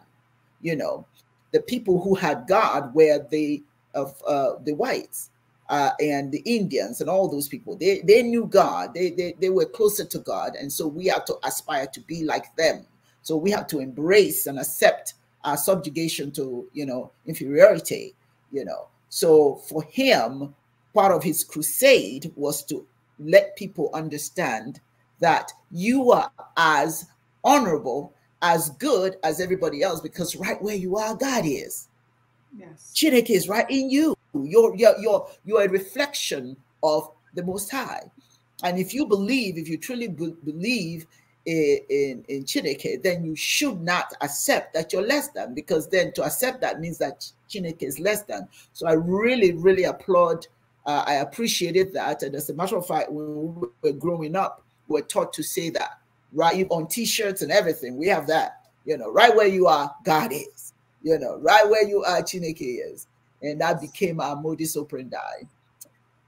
you know, the people who had God were the of uh, the whites uh, and the Indians and all those people. They, they knew God, they, they, they were closer to God. And so we have to aspire to be like them. So we have to embrace and accept our subjugation to, you know, inferiority, you know. So for him, part of his crusade was to let people understand that you are as honorable, as good as everybody else, because right where you are, God is. Yes. Chineke is right in you. You're, you you're, you're a reflection of the Most High. And if you believe, if you truly believe in, in, in Chineke, then you should not accept that you're less than, because then to accept that means that Chineke is less than. So I really, really applaud, uh, I appreciated that. And as a matter of fact, when we were growing up, we were taught to say that, right? On t shirts and everything, we have that. You know, right where you are, God is. You know, right where you are, Chineke is and that became our modus operandi.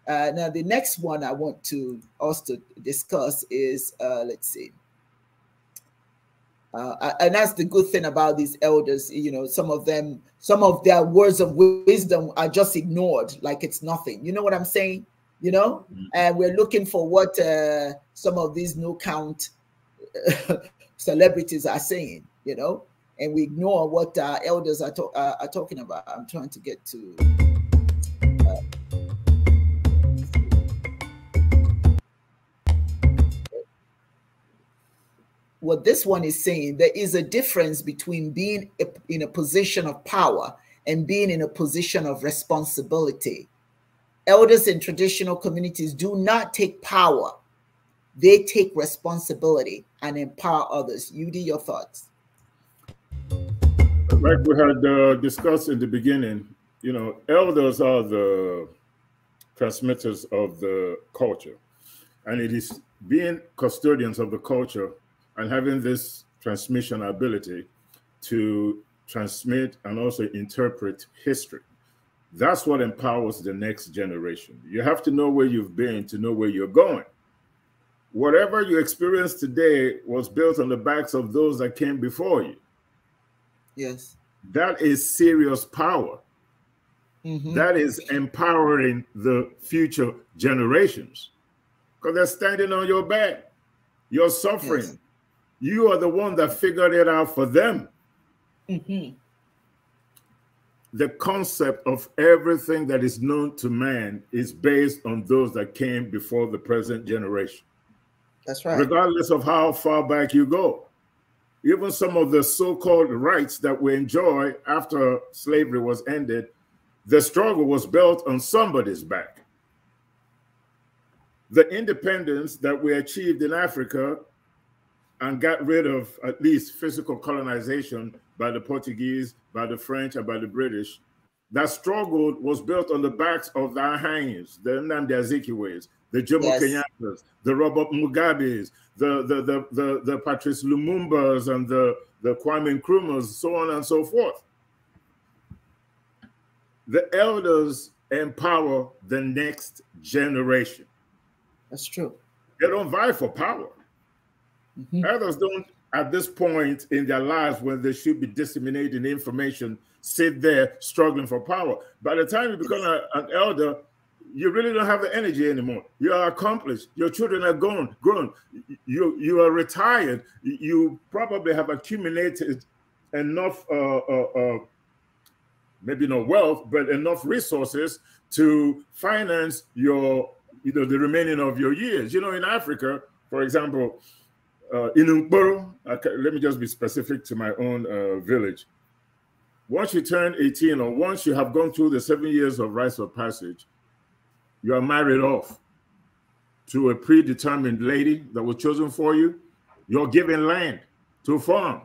Uh, now, the next one I want to also discuss is uh, let's see. Uh, and that's the good thing about these elders, you know, some of them, some of their words of wisdom are just ignored like it's nothing. You know what I'm saying? You know, mm. and we're looking for what uh, some of these no count celebrities are saying, you know, and we ignore what our elders are, to are, uh, are talking about. I'm trying to get to. Uh, what this one is saying there is a difference between being in a position of power and being in a position of responsibility elders in traditional communities do not take power they take responsibility and empower others you do your thoughts like we had uh, discussed in the beginning, you know, elders are the transmitters of the culture. And it is being custodians of the culture and having this transmission ability to transmit and also interpret history. That's what empowers the next generation. You have to know where you've been to know where you're going. Whatever you experience today was built on the backs of those that came before you. Yes. That is serious power. Mm-hmm. That is empowering the future generations because they're standing on your back. You're suffering. Yes. You are the one that figured it out for them. Mm-hmm. The concept of everything that is known to man is based on those that came before the present generation. That's right. Regardless of how far back you go even some of the so-called rights that we enjoy after slavery was ended, the struggle was built on somebody's back. The independence that we achieved in Africa and got rid of at least physical colonization by the Portuguese, by the French, and by the British, that struggle was built on the backs of the Ahanyas, the Nnamdi Azikiwes, the Jomo yes. Kenyatta's, the Robert Mugabe's, the the the the, the Patrice Lumumba's, and the the Kwame Nkrumah's, so on and so forth. The elders empower the next generation. That's true. They don't vie for power. Mm-hmm. Elders don't, at this point in their lives, when they should be disseminating information, sit there struggling for power. By the time you become a, an elder, you really don't have the energy anymore. You are accomplished. Your children are gone, grown. You you are retired. You probably have accumulated enough, uh, uh, uh, maybe not wealth, but enough resources to finance your you know the remaining of your years. You know, in Africa, for example, uh, in Umboro, let me just be specific to my own uh, village. Once you turn 18 or once you have gone through the seven years of rites of passage, you are married off to a predetermined lady that was chosen for you. You're given land to farm.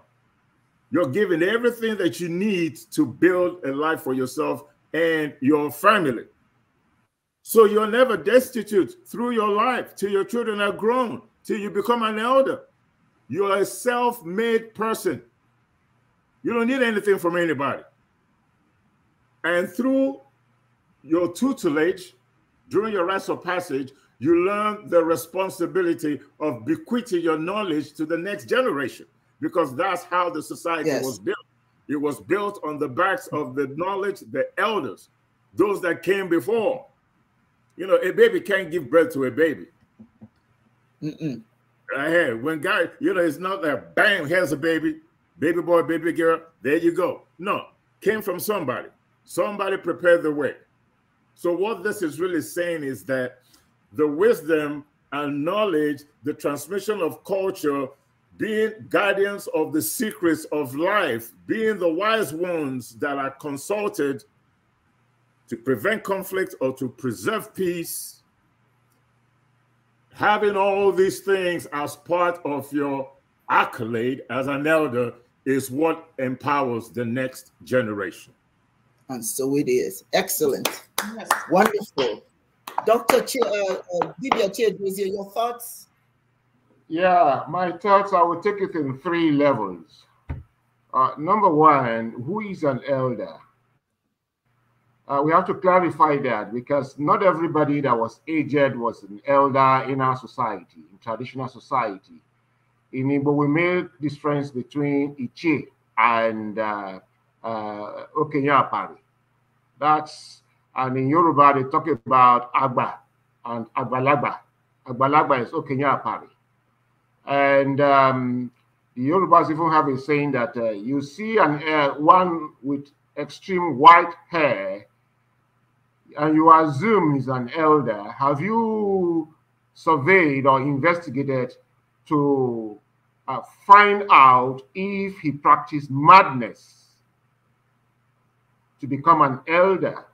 You're given everything that you need to build a life for yourself and your family. So you're never destitute through your life till your children are grown, till you become an elder. You're a self made person. You don't need anything from anybody. And through your tutelage, during your rites of passage, you learn the responsibility of bequeathing your knowledge to the next generation because that's how the society yes. was built. It was built on the backs of the knowledge, the elders, those that came before. You know, a baby can't give birth to a baby. Mm-mm. when God, you know, it's not that bang here's a baby, baby boy, baby girl, there you go. No, came from somebody. Somebody prepared the way. So, what this is really saying is that the wisdom and knowledge, the transmission of culture, being guardians of the secrets of life, being the wise ones that are consulted to prevent conflict or to preserve peace, having all these things as part of your accolade as an elder is what empowers the next generation. And so it is. Excellent. Wonderful. Dr. Ch uh, uh, Divya your thoughts? Yeah, my thoughts, I will take it in three levels. Uh, number one, who is an elder? Uh, we have to clarify that because not everybody that was aged was an elder in our society, in traditional society. In Igbo, we made difference between Ichi and uh, uh, That's and in Yoruba, they talk about Agba and Agbalagba. Agbalagba is Okenya Apari. And um, the Yorubas even have a saying that uh, you see an uh, one with extreme white hair and you assume he's an elder. Have you surveyed or investigated to uh, find out if he practiced madness to become an elder?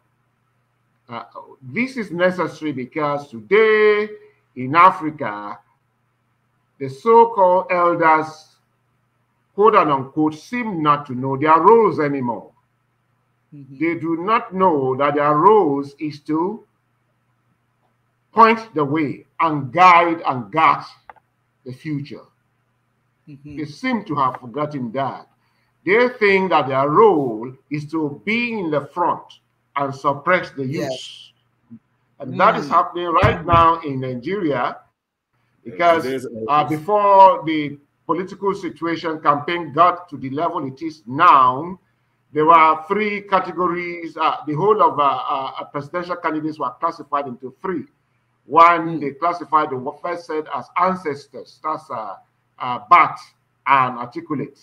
Uh, this is necessary because today in Africa, the so-called elders, quote and unquote, seem not to know their roles anymore. Mm-hmm. They do not know that their roles is to point the way and guide and guard the future. Mm -hmm. They seem to have forgotten that. They think that their role is to be in the front, and suppress the youth. Yes. And mm. that is hmm. happening right now in Nigeria because uh, before the political situation campaign got to the level it is now, there were three categories. Uh, the whole of uh, uh presidential candidates were classified into three. One, mm. they classified the first set as ancestors, that's uh, uh, bat and articulate.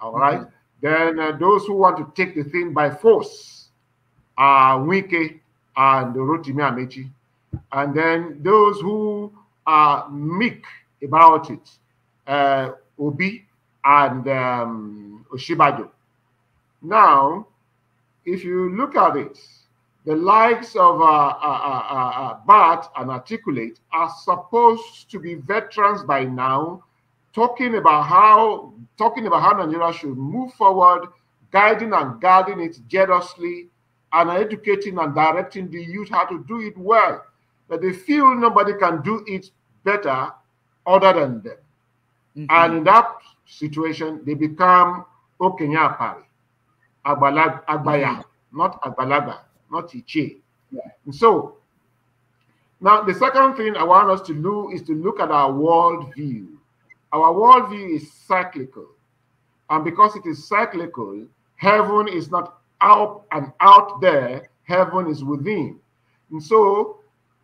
All right. Mm. Then uh, those who want to take the thing by force, uh, Wike and Rotimi Amechi. And then those who are meek about it, uh, Obi and um, Oshibajo. Now, if you look at it, the likes of uh, uh, uh, uh, uh Bart and Articulate are supposed to be veterans by now, talking about how talking about how Nigeria should move forward, guiding and guarding it generously and educating and directing the youth how to do it well. That they feel nobody can do it better other than them. Mm -hmm. And in that situation, they become Okenyapari, Agbalag, Agbaya, mm -hmm. not Agbalaga, not Iche. Yeah. And so, now the second thing I want us to do is to look at our world view. Our world view is cyclical. And because it is cyclical, heaven is not out and out there, heaven is within. And so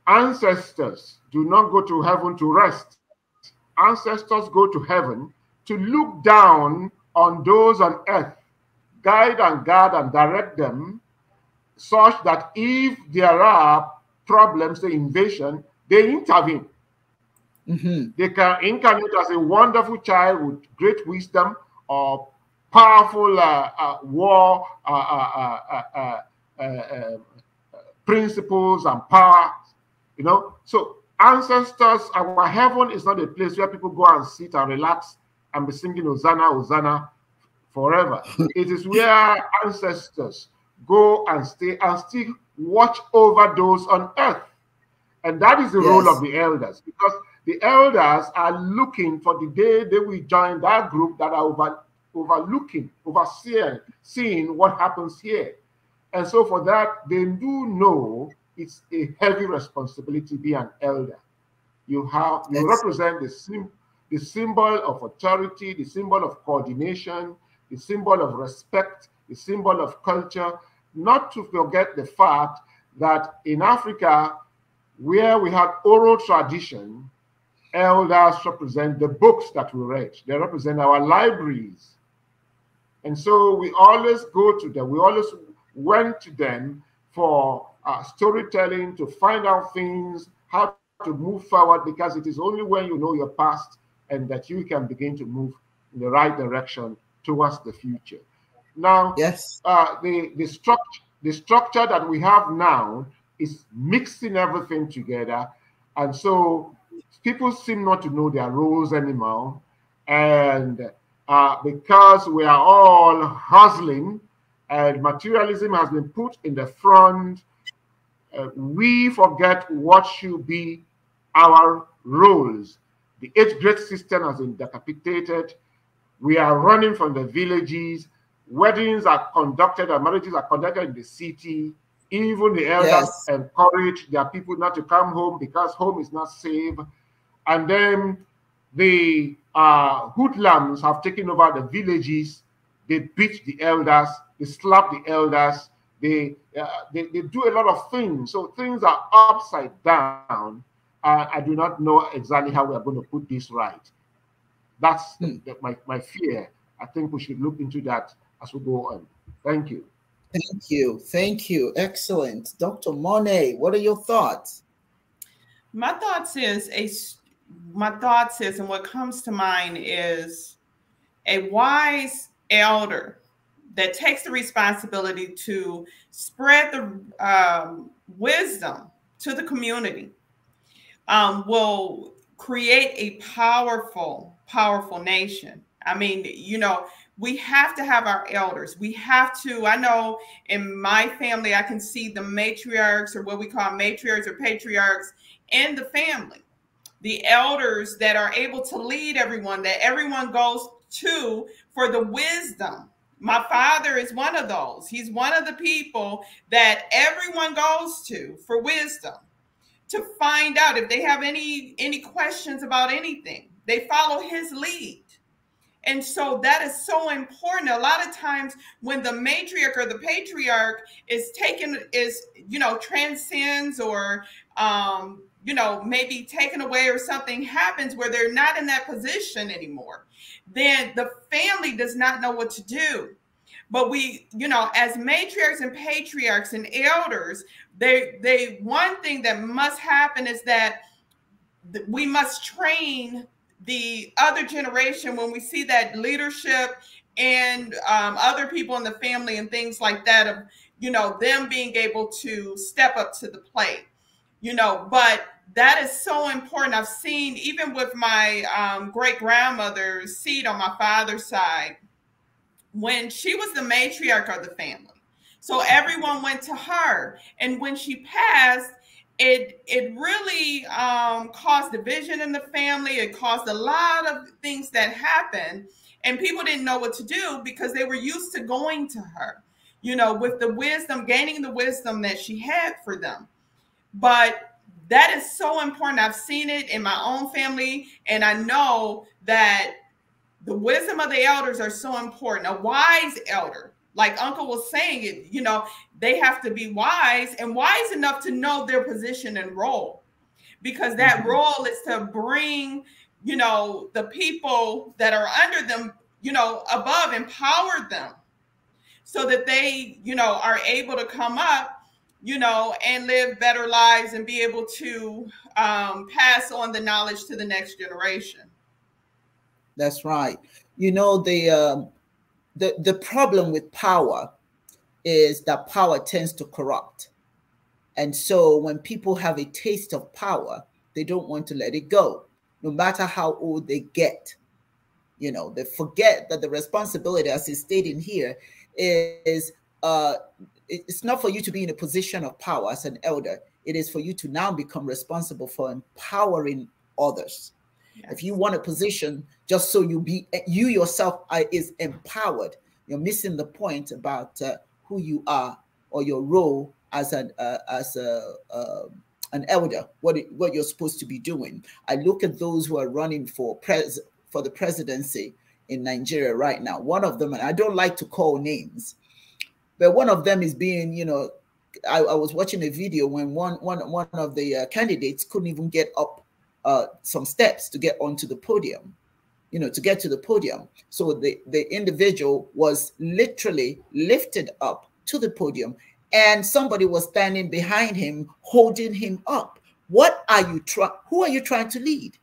ancestors do not go to heaven to rest. Ancestors go to heaven to look down on those on earth, guide and guard and direct them such that if there are problems, the invasion, they intervene. Mm -hmm. They can incarnate as a wonderful child with great wisdom or powerful uh, uh, war uh, principles and power, you know. So ancestors, our heaven is not a place where people go and sit and relax and be singing Hosanna, Hosanna forever. it is where ancestors go and stay and still watch over those on earth. And that is the yes. role of the elders because the elders are looking for the day they will join that group that are over overlooking, overseeing, seeing what happens here. And so for that, they do know it's a heavy responsibility to be an elder. You have you represent the sim, the symbol of authority, the symbol of coordination, the symbol of respect, the symbol of culture. Not to forget the fact that in Africa, where we had oral tradition, elders represent the books that we read. They represent our libraries. And so we always go to them. We always went to them for uh, storytelling to find out things, how to move forward, because it is only when you know your past and that you can begin to move in the right direction towards the future. Now, yes, uh, the the structure the structure that we have now is mixing everything together, and so people seem not to know their roles anymore, and uh, because we are all hustling and materialism has been put in the front, uh, we forget what should be our roles. The eighth grade system has been decapitated. We are running from the villages. Weddings are conducted and marriages are conducted in the city. Even the elders yes. encourage their people not to come home because home is not safe. And then the uh, hoodlums have taken over the villages. They beat the elders. They slap the elders. They, uh, they, they do a lot of things. So things are upside down. Uh, I do not know exactly how we are going to put this right. That's hmm. the, my, my fear. I think we should look into that as we go on. Thank you. Thank you. Thank you. Excellent. Dr. Monet, what are your thoughts? My thoughts is a my thoughts is and what comes to mind is a wise elder that takes the responsibility to spread the um, wisdom to the community um, will create a powerful, powerful nation. I mean, you know, we have to have our elders. We have to. I know in my family, I can see the matriarchs or what we call matriarchs or patriarchs in the family the elders that are able to lead everyone, that everyone goes to for the wisdom. My father is one of those. He's one of the people that everyone goes to for wisdom to find out if they have any any questions about anything. They follow his lead. And so that is so important. A lot of times when the matriarch or the patriarch is taken is you know transcends or um you know, maybe taken away or something happens where they're not in that position anymore, then the family does not know what to do. But we, you know, as matriarchs and patriarchs and elders, they they one thing that must happen is that we must train the other generation when we see that leadership and um, other people in the family and things like that of you know them being able to step up to the plate you know but that is so important. I've seen, even with my um, great grandmother's seat on my father's side, when she was the matriarch of the family. So everyone went to her. And when she passed, it, it really um, caused division in the family. It caused a lot of things that happened. And people didn't know what to do because they were used to going to her, you know, with the wisdom, gaining the wisdom that she had for them. But that is so important. I've seen it in my own family, and I know that the wisdom of the elders are so important. A wise elder, like Uncle was saying, it you know they have to be wise and wise enough to know their position and role, because that mm-hmm. role is to bring you know the people that are under them, you know, above, empower them, so that they you know are able to come up you know, and live better lives and be able to um, pass on the knowledge to the next generation. That's right. You know, the, uh, the, the problem with power is that power tends to corrupt. And so when people have a taste of power, they don't want to let it go, no matter how old they get. You know, they forget that the responsibility, as is stated here, is uh, it's not for you to be in a position of power as an elder. It is for you to now become responsible for empowering others. Yes. If you want a position just so you be you yourself are, is empowered, you're missing the point about uh, who you are or your role as an uh, as a uh, an elder. What it, what you're supposed to be doing. I look at those who are running for pres for the presidency in Nigeria right now. One of them, and I don't like to call names, but one of them is being, you know, I, I was watching a video when one one one of the uh, candidates couldn't even get up uh, some steps to get onto the podium, you know, to get to the podium. So the the individual was literally lifted up to the podium, and somebody was standing behind him holding him up. What are you trying? Who are you trying to lead?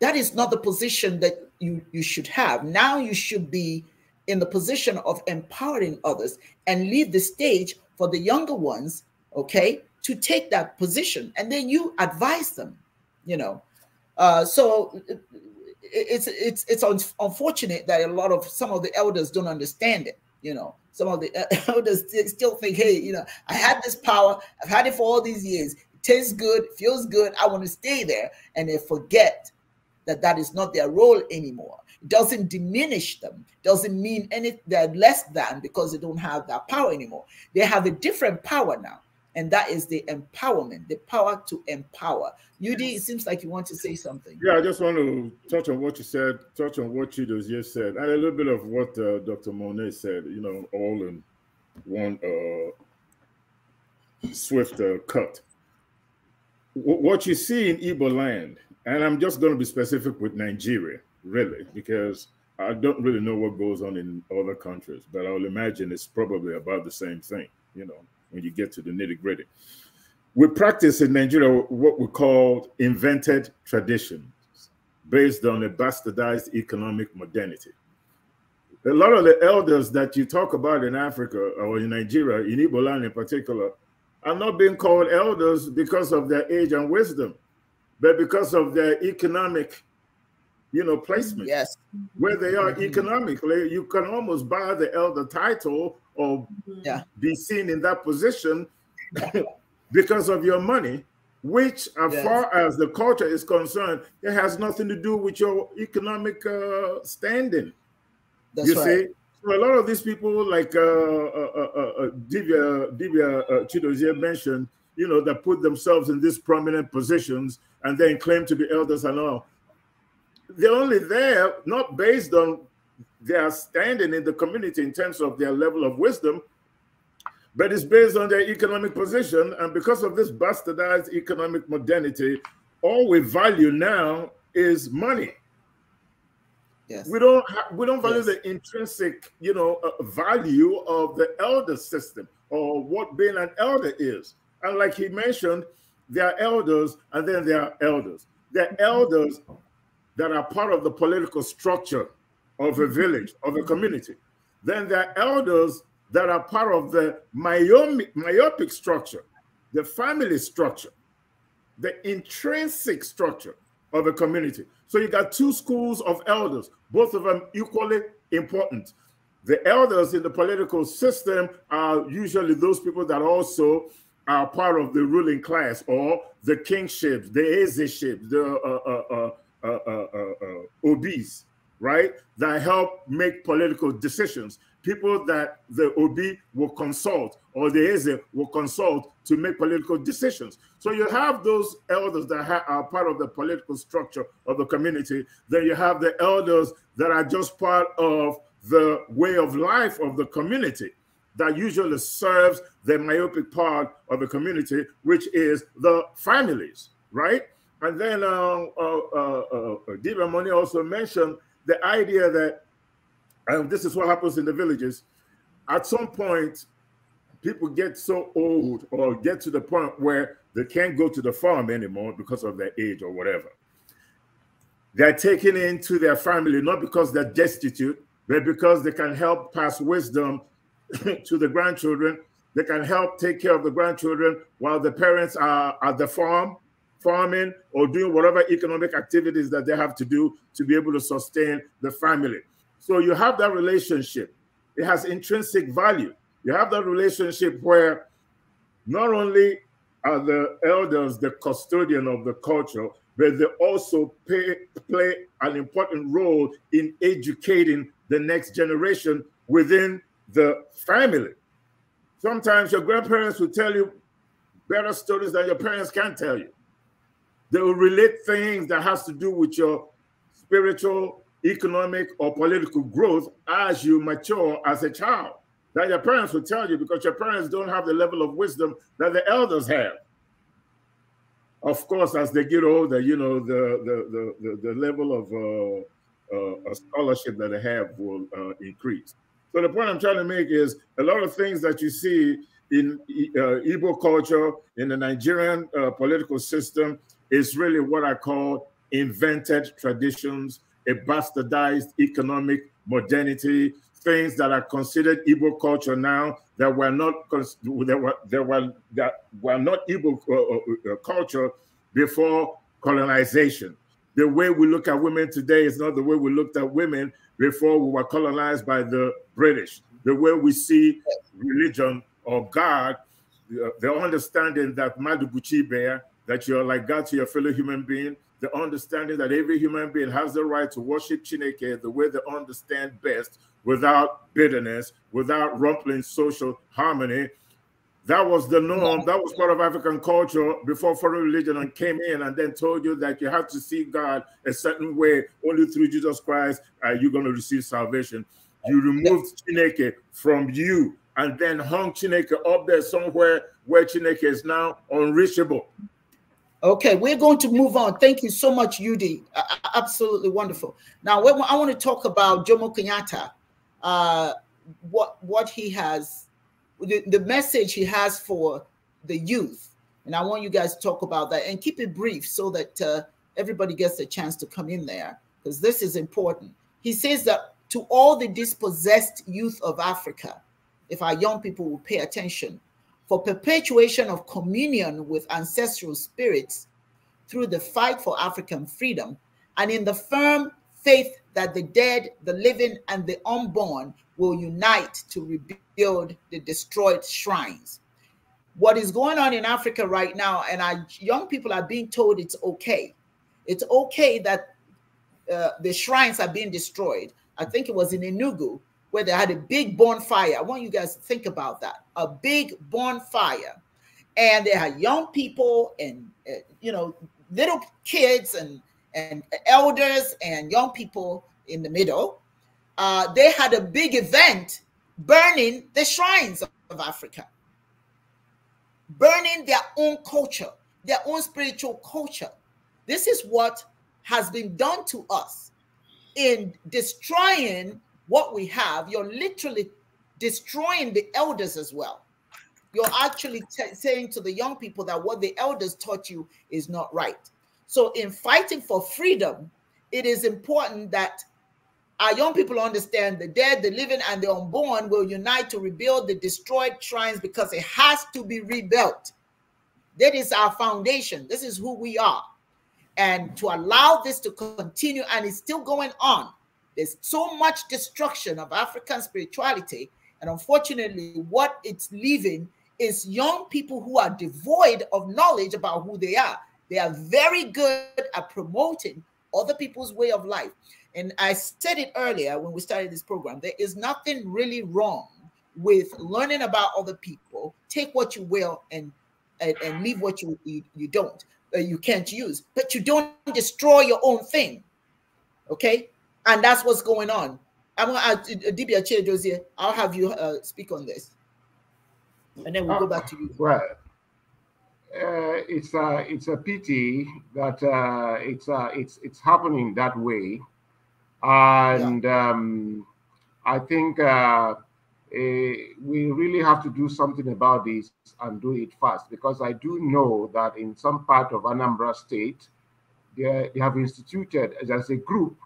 That is not the position that you you should have. Now you should be in the position of empowering others and leave the stage for the younger ones, okay, to take that position. And then you advise them, you know. Uh, so it's it's it's un unfortunate that a lot of some of the elders don't understand it. You know, some of the elders still think, hey, you know, I had this power, I've had it for all these years. It tastes good, feels good. I want to stay there, and they forget that that is not their role anymore doesn't diminish them, doesn't mean any they're less than because they don't have that power anymore. They have a different power now, and that is the empowerment, the power to empower. UD, it seems like you want to say something. Yeah, I just want to touch on what you said, touch on what Chidozie just said, and a little bit of what uh, Dr. Monet said, you know, all in one uh, swift uh, cut. W what you see in Igbo land, and I'm just going to be specific with Nigeria, really, because I don't really know what goes on in other countries, but I will imagine it's probably about the same thing, you know, when you get to the nitty gritty. We practice in Nigeria what we call invented traditions based on a bastardized economic modernity. A lot of the elders that you talk about in Africa or in Nigeria, in Igbo land in particular, are not being called elders because of their age and wisdom, but because of their economic you know, mm-hmm. placement. Yes. Where they are mm-hmm. economically, you can almost buy the elder title or mm-hmm. yeah. be seen in that position because of your money, which, as yes. far as the culture is concerned, it has nothing to do with your economic uh, standing. That's you right. see? So a lot of these people, like uh, uh, uh, uh, uh Divya, Divya Chidozie mentioned, you know, that put themselves in these prominent positions and then claim to be elders and all they're only there not based on their standing in the community in terms of their level of wisdom, but it's based on their economic position. And because of this bastardized economic modernity, all we value now is money. Yes. We don't we don't value yes. the intrinsic, you know, uh, value of the elder system or what being an elder is. And like he mentioned, there are elders and then there are elders. There are mm-hmm. elders that are part of the political structure of a village, of a community. Then there are elders that are part of the myopic structure, the family structure, the intrinsic structure of a community. So you got two schools of elders, both of them equally important. The elders in the political system are usually those people that also are part of the ruling class or the kingship, the aizyships, the uh, uh, uh, uh, uh, uh, OBs, right, that help make political decisions. People that the OB will consult or the AZ will consult to make political decisions. So you have those elders that are part of the political structure of the community. Then you have the elders that are just part of the way of life of the community that usually serves the myopic part of the community, which is the families, right? And then uh, uh, uh, uh Moni also mentioned the idea that, this is what happens in the villages, at some point, people get so old or get to the point where they can't go to the farm anymore because of their age or whatever. They're taken into their family, not because they're destitute, but because they can help pass wisdom to the grandchildren. They can help take care of the grandchildren while the parents are at the farm farming or doing whatever economic activities that they have to do to be able to sustain the family. So you have that relationship. It has intrinsic value. You have that relationship where not only are the elders the custodian of the culture, but they also pay, play an important role in educating the next generation within the family. Sometimes your grandparents will tell you better stories than your parents can tell you. They will relate things that has to do with your spiritual, economic, or political growth as you mature as a child. That your parents will tell you because your parents don't have the level of wisdom that the elders have. Of course, as they get older, you know the the the, the, the level of uh, uh, a scholarship that they have will uh, increase. So the point I'm trying to make is a lot of things that you see in uh, Igbo culture, in the Nigerian uh, political system, is really what I call invented traditions, a bastardized economic modernity, things that are considered Igbo culture now that were not that were that were not Igbo uh, uh, uh, culture before colonization. The way we look at women today is not the way we looked at women before we were colonized by the British. The way we see religion or God, the understanding that Madubuchi Bear that you're like God to your fellow human being, the understanding that every human being has the right to worship Chineke the way they understand best without bitterness, without rumpling social harmony. That was the norm. That was part of African culture before foreign religion came in and then told you that you have to see God a certain way. Only through Jesus Christ are uh, you going to receive salvation. You removed Chineke from you and then hung Chineke up there somewhere where Chineke is now unreachable. Okay, we're going to move on. Thank you so much, Yudi. Uh, absolutely wonderful. Now, I want to talk about Jomo Kenyatta, uh, what what he has, the, the message he has for the youth, and I want you guys to talk about that and keep it brief so that uh, everybody gets a chance to come in there because this is important. He says that to all the dispossessed youth of Africa, if our young people will pay attention, for perpetuation of communion with ancestral spirits through the fight for African freedom, and in the firm faith that the dead, the living, and the unborn will unite to rebuild the destroyed shrines. What is going on in Africa right now, and our young people are being told it's okay. It's okay that uh, the shrines are being destroyed. I think it was in Enugu where they had a big bonfire. I want you guys to think about that a big bonfire. And they had young people and, uh, you know, little kids and, and elders and young people in the middle. Uh, they had a big event burning the shrines of Africa, burning their own culture, their own spiritual culture. This is what has been done to us in destroying what we have, you're literally destroying the elders as well. You're actually saying to the young people that what the elders taught you is not right. So, in fighting for freedom, it is important that our young people understand the dead, the living, and the unborn will unite to rebuild the destroyed shrines because it has to be rebuilt. That is our foundation. This is who we are. And to allow this to continue, and it's still going on, there's so much destruction of African spirituality. And unfortunately, what it's leaving is young people who are devoid of knowledge about who they are. They are very good at promoting other people's way of life. And I said it earlier when we started this program there is nothing really wrong with learning about other people. Take what you will and and, and leave what you, you, you don't, uh, you can't use, but you don't destroy your own thing. Okay? And that's what's going on. I'm going to ask Dibia Josie. I'll have you uh, speak on this. And then we'll go back to you. Uh, right. uh, it's a uh, it's a pity that uh, it's uh, it's it's happening that way, and yeah. um, I think uh, eh, we really have to do something about this and do it fast because I do know that in some part of Anambra State, they, they have instituted as a group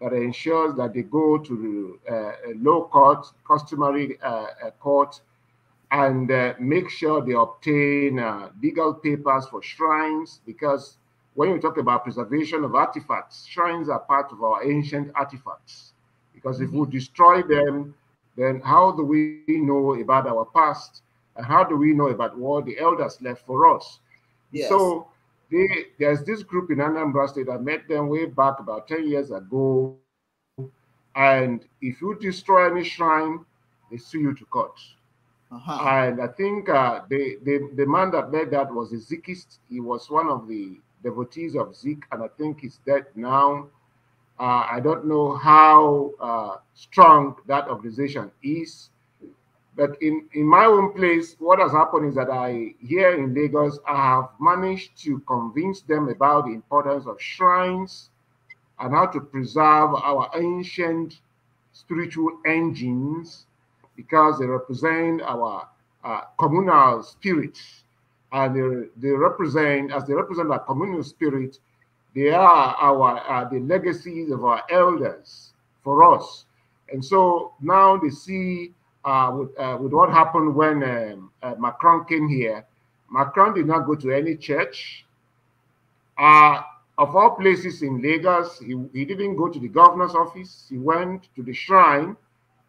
that ensures that they go to uh, a low court, customary uh, court, and uh, make sure they obtain legal papers for shrines because when you talk about preservation of artifacts, shrines are part of our ancient artifacts. Because if we mm-hmm. destroy them, then how do we know about our past? And how do we know about what the elders left for us? Yes. So they, there's this group in Anambra State. I met them way back about 10 years ago. And if you destroy any shrine, they sue you to court. Uh -huh. And I think uh, the, the, the man that made that was a Zikist. He was one of the devotees of Zik, and I think he's dead now. Uh, I don't know how uh, strong that organization is, but in, in my own place, what has happened is that I, here in Lagos, I have managed to convince them about the importance of shrines and how to preserve our ancient spiritual engines because they represent our uh, communal spirit. And they, they represent, as they represent our communal spirit, they are our uh, the legacies of our elders for us. And so now they see uh, with, uh, with what happened when um, uh, Macron came here. Macron did not go to any church. Uh, of all places in Lagos, he, he didn't go to the governor's office. He went to the shrine,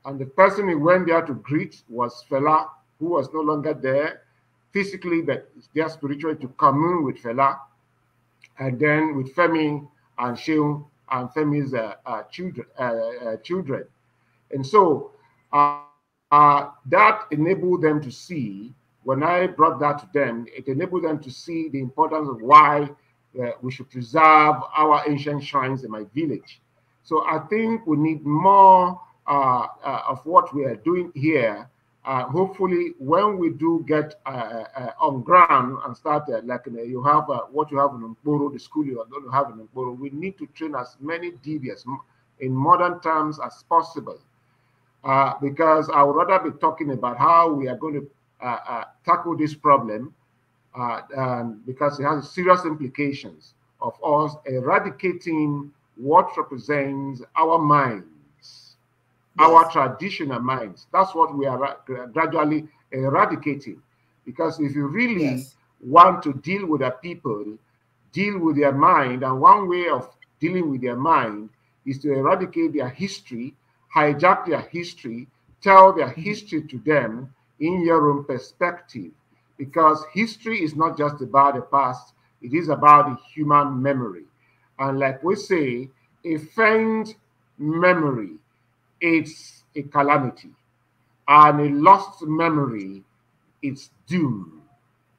and the person he went there to greet was Fela, who was no longer there physically, but there spiritually to commune with Fela, and then with Femi and Sheung and Femi's uh, uh, children. Uh, uh children. And so uh, uh, that enabled them to see, when I brought that to them, it enabled them to see the importance of why uh, we should preserve our ancient shrines in my village. So I think we need more uh, uh of what we are doing here. Uh, hopefully, when we do get uh, on ground and start, like you have what you have in Mboro, the school you are going to have in Mboro, we need to train as many DBS in modern terms as possible uh, because I would rather be talking about how we are going to uh, uh tackle this problem uh, because it has serious implications of us eradicating what represents our minds, yes. our traditional minds. That's what we are gradually eradicating. Because if you really yes. want to deal with a people, deal with their mind, and one way of dealing with their mind is to eradicate their history hijack their history, tell their mm-hmm. history to them in your own perspective. Because history is not just about the past, it is about the human memory. And like we say, a faint memory, it's a calamity. And a lost memory, it's doom.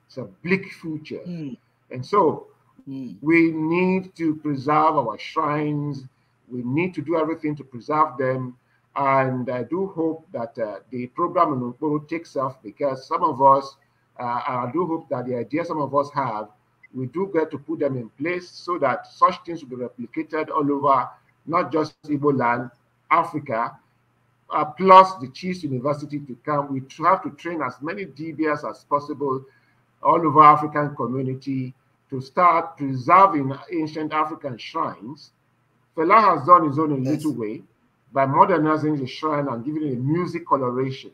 It's a bleak future. Mm. And so mm. we need to preserve our shrines. We need to do everything to preserve them and I do hope that uh, the program in Nkuru takes off because some of us, uh, I do hope that the ideas some of us have, we do get to put them in place so that such things will be replicated all over, not just Igbo land, Africa, uh, plus the Chiefs University to come. We have to train as many DBS as possible all over African community to start preserving ancient African shrines. Fela has done his own in yes. little way by modernizing the shrine and giving it a music coloration,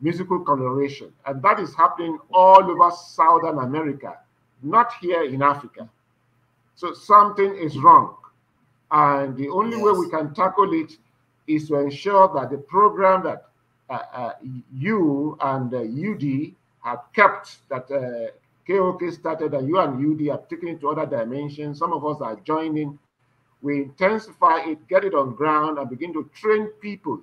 musical coloration. And that is happening all over Southern America, not here in Africa. So something is wrong. And the only yes. way we can tackle it is to ensure that the program that uh, uh, you and uh, UD have kept that KOK uh, started and you and UD have taken it to other dimensions. Some of us are joining we intensify it, get it on ground, and begin to train people.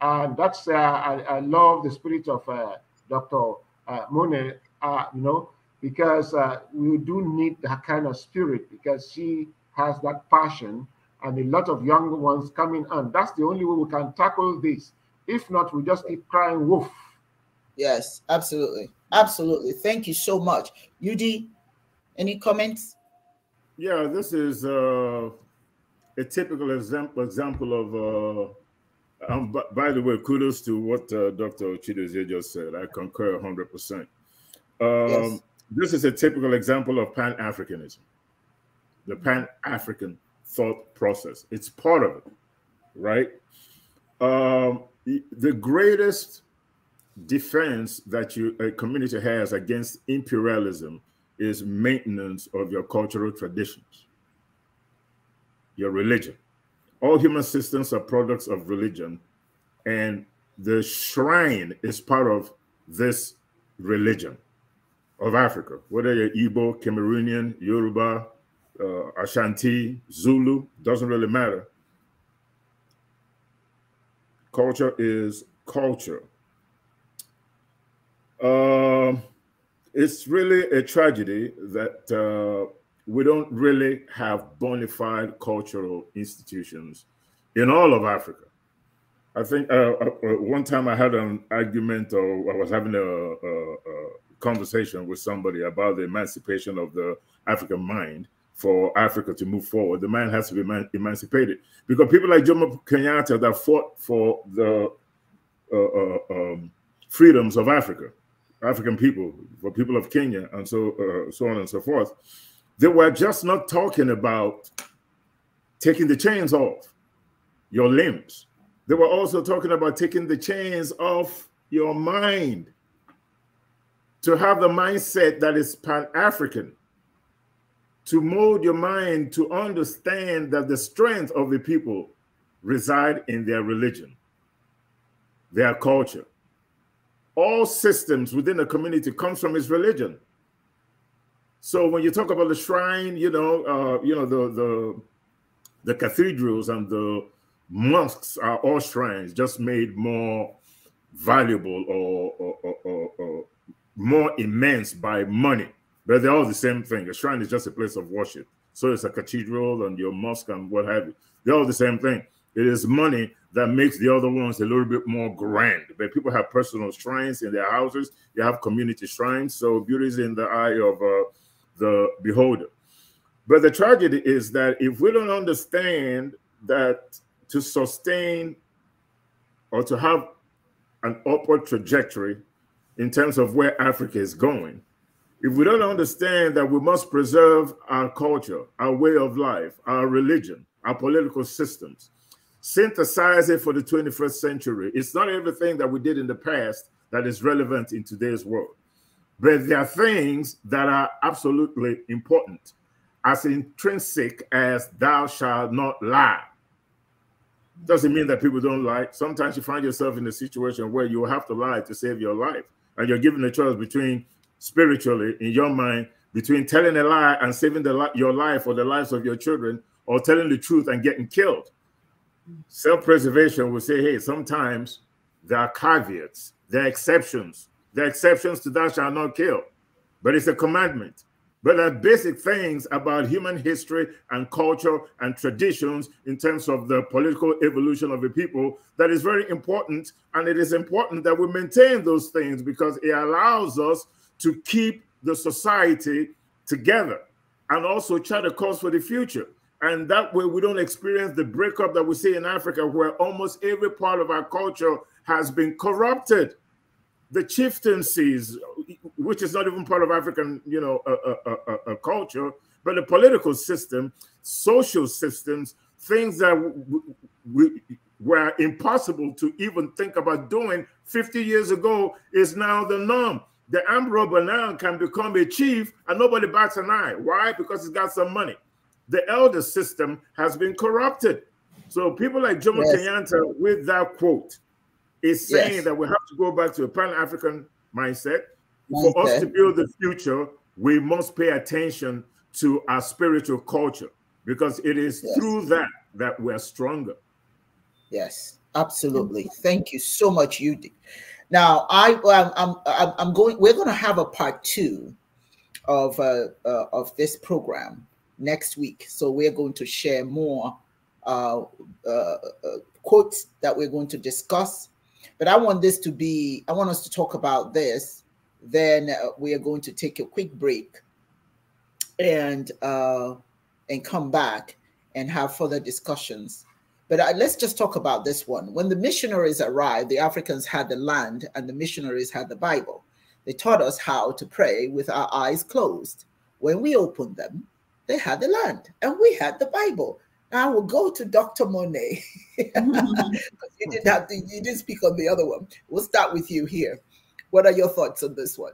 And that's uh, I, I, love the spirit of uh, Dr. Uh, Monet, uh, you know, because uh, we do need that kind of spirit because she has that passion and a lot of young ones coming on. That's the only way we can tackle this. If not, we just keep crying wolf. Yes, absolutely. Absolutely. Thank you so much. Udi. any comments? Yeah, this is uh, a typical example example of. Uh, um, by the way, kudos to what uh, Dr. Chidozie just said. I concur 100%. Um, yes. This is a typical example of Pan Africanism, the Pan African thought process. It's part of it, right? Um, the greatest defense that you, a community has against imperialism is maintenance of your cultural traditions your religion. All human systems are products of religion, and the shrine is part of this religion of Africa, whether you're Ibo, Cameroonian, Yoruba, uh, Ashanti, Zulu, doesn't really matter. Culture is culture. Uh, it's really a tragedy that uh, we don't really have bona fide cultural institutions in all of Africa. I think uh, uh, uh, one time I had an argument, or I was having a, a, a, conversation with somebody about the emancipation of the African mind for Africa to move forward. The mind has to be eman emancipated because people like Jomo Kenyatta that fought for the uh, uh, um, freedoms of Africa, African people, for people of Kenya, and so uh, so on and so forth that we're just not talking about taking the chains off your limbs. They were also talking about taking the chains off your mind to have the mindset that is pan African, to mold your mind to understand that the strength of the people reside in their religion, their culture. All systems within a community comes from its religion. So when you talk about the shrine, you know, uh, you know the the the cathedrals and the mosques are all shrines, just made more valuable or, or, or, or more immense by money. But they're all the same thing. A shrine is just a place of worship. So it's a cathedral and your mosque and what have you. They're all the same thing. It is money that makes the other ones a little bit more grand. But people have personal shrines in their houses. You have community shrines. So beauty is in the eye of uh, the beholder. But the tragedy is that if we don't understand that to sustain or to have an upward trajectory in terms of where Africa is going, if we don't understand that we must preserve our culture, our way of life, our religion, our political systems, synthesize it for the 21st century. It's not everything that we did in the past that is relevant in today's world. But there are things that are absolutely important, as intrinsic as thou shalt not lie. Doesn't mean that people don't lie. Sometimes you find yourself in a situation where you have to lie to save your life. And you're given a choice between spiritually, in your mind, between telling a lie and saving the, your life or the lives of your children, or telling the truth and getting killed. Self preservation will say, hey, sometimes there are caveats, there are exceptions the exceptions to that shall not kill, but it's a commandment. But there are basic things about human history and culture and traditions in terms of the political evolution of a people that is very important. And it is important that we maintain those things because it allows us to keep the society together and also chart a course for the future. And that way we don't experience the breakup that we see in Africa where almost every part of our culture has been corrupted the chieftaincies, which is not even part of African, you know, a uh, uh, uh, culture, but the political system, social systems, things that were impossible to even think about doing 50 years ago is now the norm. The Ambro can become a chief and nobody bats an eye. Why? Because he's got some money. The elder system has been corrupted. So people like Jomo yes. Kenyatta, with that quote, is saying yes. that we have to go back to a pan African mindset. mindset. For us to build the future, we must pay attention to our spiritual culture because it is yes. through that that we're stronger. Yes, absolutely. Thank you so much, Yudi. Now, I, I'm, I'm, going. We're going to have a part two of uh, uh, of this program next week. So we're going to share more uh, uh, uh quotes that we're going to discuss but I want this to be, I want us to talk about this. Then uh, we are going to take a quick break and uh, and come back and have further discussions. But uh, let's just talk about this one. When the missionaries arrived, the Africans had the land and the missionaries had the Bible. They taught us how to pray with our eyes closed. When we opened them, they had the land and we had the Bible. I will go to Dr. Monet. Mm-hmm. you didn't have to, you didn't speak on the other one. We'll start with you here. What are your thoughts on this one?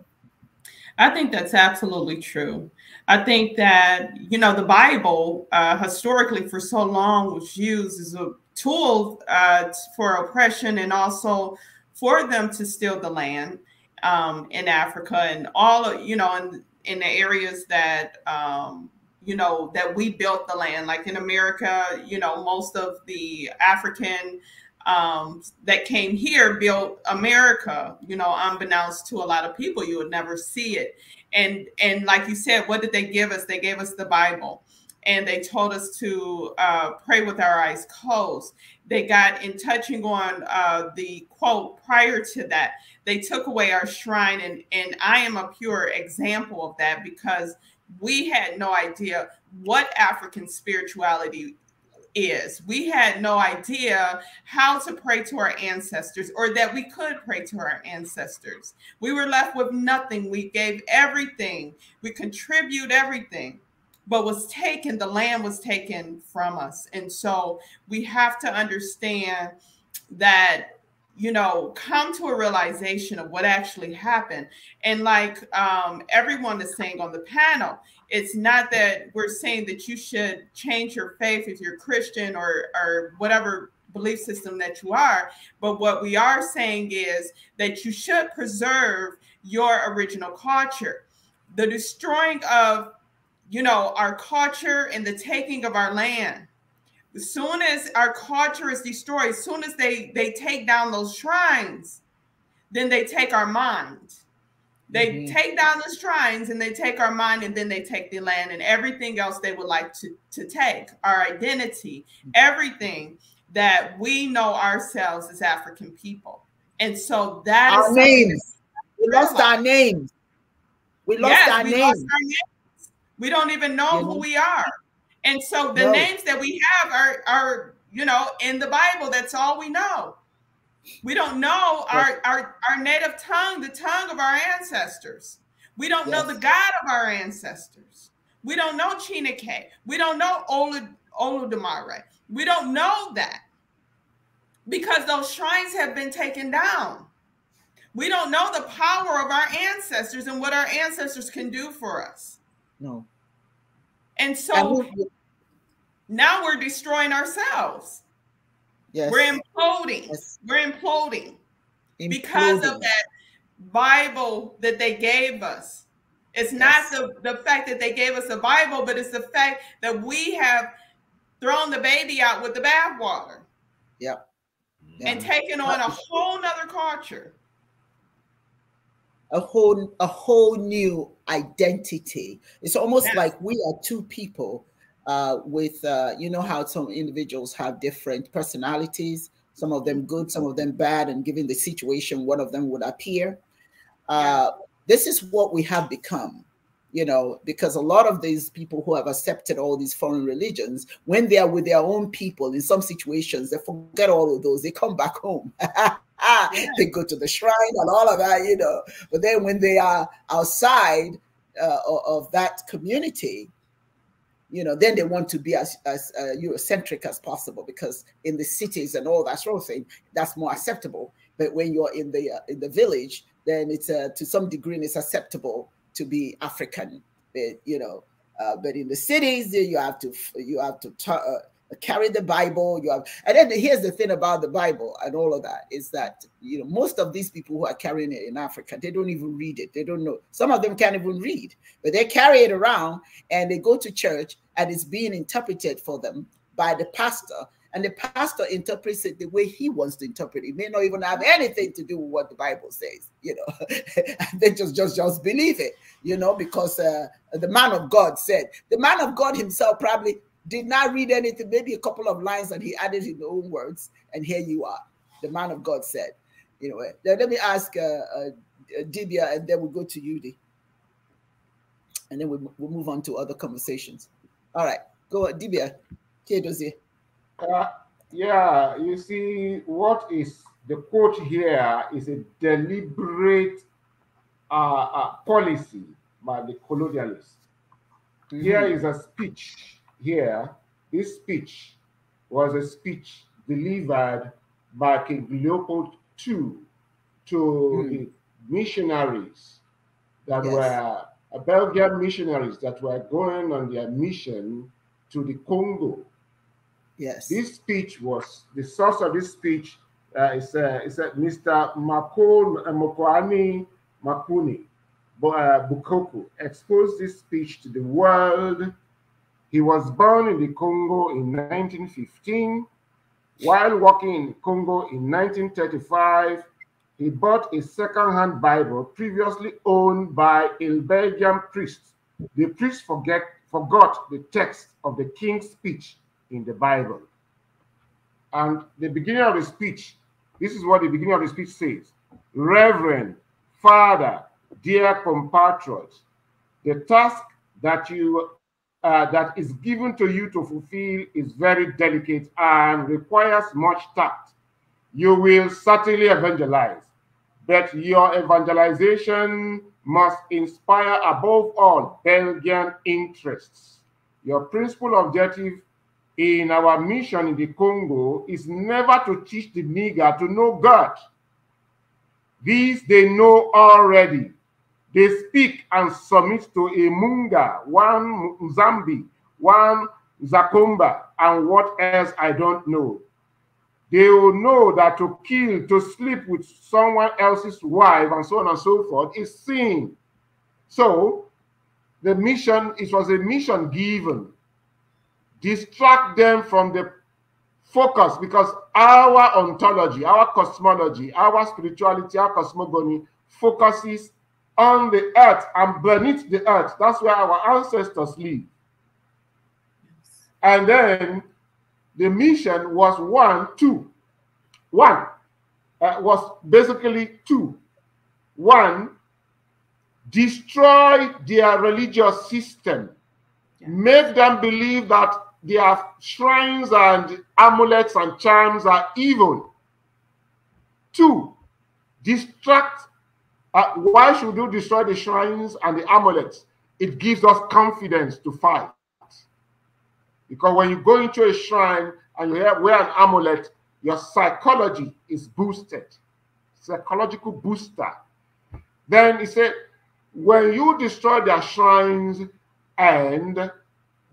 I think that's absolutely true. I think that, you know, the Bible uh, historically for so long was used as a tool uh, for oppression and also for them to steal the land um, in Africa and all, of, you know, in, in the areas that um, you know that we built the land like in america you know most of the african um, that came here built america you know unbeknownst to a lot of people you would never see it and and like you said what did they give us they gave us the bible and they told us to uh, pray with our eyes closed. They got in touching on uh, the quote prior to that. They took away our shrine, and and I am a pure example of that because we had no idea what African spirituality is. We had no idea how to pray to our ancestors or that we could pray to our ancestors. We were left with nothing. We gave everything, we contribute everything, but was taken, the land was taken from us. And so we have to understand that you know, come to a realization of what actually happened. And like um, everyone is saying on the panel, it's not that we're saying that you should change your faith if you're Christian or or whatever belief system that you are, but what we are saying is that you should preserve your original culture. The destroying of, you know, our culture and the taking of our land as soon as our culture is destroyed, as soon as they, they take down those shrines, then they take our mind. They mm-hmm. take down the shrines and they take our mind and then they take the land and everything else they would like to, to take our identity, everything that we know ourselves as African people. And so that our names. We lost our names. We lost, yes, our, we names. lost our names. We don't even know who mm-hmm. we are. And so the names that we have are are you know in the Bible. That's all we know. We don't know yes. our, our our native tongue, the tongue of our ancestors. We don't yes. know the God of our ancestors. We don't know Chinake. We don't know Olud, Oludamare. We don't know that because those shrines have been taken down. We don't know the power of our ancestors and what our ancestors can do for us. No. And so now we're destroying ourselves. Yes. We're imploding. Yes. We're imploding, imploding because of that Bible that they gave us. It's yes. not the, the fact that they gave us a Bible, but it's the fact that we have thrown the baby out with the bathwater. Yep. Yeah. And taken on a whole nother culture. A whole a whole new identity. It's almost like we are two people uh, with, uh, you know, how some individuals have different personalities, some of them good, some of them bad, and given the situation, one of them would appear. Uh, this is what we have become, you know, because a lot of these people who have accepted all these foreign religions, when they are with their own people in some situations, they forget all of those, they come back home. they go to the shrine and all of that, you know. But then when they are outside uh, of that community, you know then they want to be as, as uh, eurocentric as possible because in the cities and all that sort of thing that's more acceptable but when you're in the uh, in the village then it's uh, to some degree it's acceptable to be african but, eh, you know uh, but in the cities you have to you have to uh, carry the Bible. You have, and then here's the thing about the Bible and all of that is that you know most of these people who are carrying it in Africa, they don't even read it. They don't know. Some of them can't even read, but they carry it around and they go to church and it's being interpreted for them by the pastor. And the pastor interprets it the way he wants to interpret it. it may not even have anything to do with what the Bible says, you know. they just just just believe it, you know, because uh, the man of God said the man of God himself probably did not read anything, maybe a couple of lines that he added in his own words, and here you are, the man of God said. You know, now eh, let me ask uh, uh, Dibia, and then we'll go to Yudi, and then we'll, we'll move on to other conversations. All right, go on, Dibia. Uh, yeah, you see, what is the quote here is a deliberate uh, uh, policy by the colonialists. Mm -hmm. Here is a speech here, this speech was a speech delivered by King Leopold II to hmm. the missionaries that yes. were uh, Belgian missionaries that were going on their mission to the Congo. Yes. This speech was the source of this speech uh, is uh, uh, Mr. Makon uh, Mokwani Makuni uh, Bukoko exposed this speech to the world he was born in the Congo in 1915. While working in Congo in 1935, he bought a second-hand Bible previously owned by a Belgian priest. The priest forget, forgot the text of the king's speech in the Bible. And the beginning of the speech, this is what the beginning of the speech says. Reverend, Father, dear compatriots, the task that you uh, that is given to you to fulfill is very delicate and requires much tact. You will certainly evangelize, but your evangelization must inspire, above all, Belgian interests. Your principal objective in our mission in the Congo is never to teach the nigger to know God. These they know already. They speak and submit to a Munga, one Zambi, one Zakumba, and what else I don't know. They will know that to kill, to sleep with someone else's wife, and so on and so forth, is sin. So, the mission, it was a mission given. Distract them from the focus because our ontology, our cosmology, our spirituality, our cosmogony focuses on the earth and beneath the earth. That's where our ancestors live. And then the mission was one, two. One uh, was basically two. One, destroy their religious system, make them believe that their shrines and amulets and charms are evil. Two, distract uh, why should you destroy the shrines and the amulets? It gives us confidence to fight. Because when you go into a shrine and you wear an amulet, your psychology is boosted, psychological booster. Then he said, when you destroy their shrines and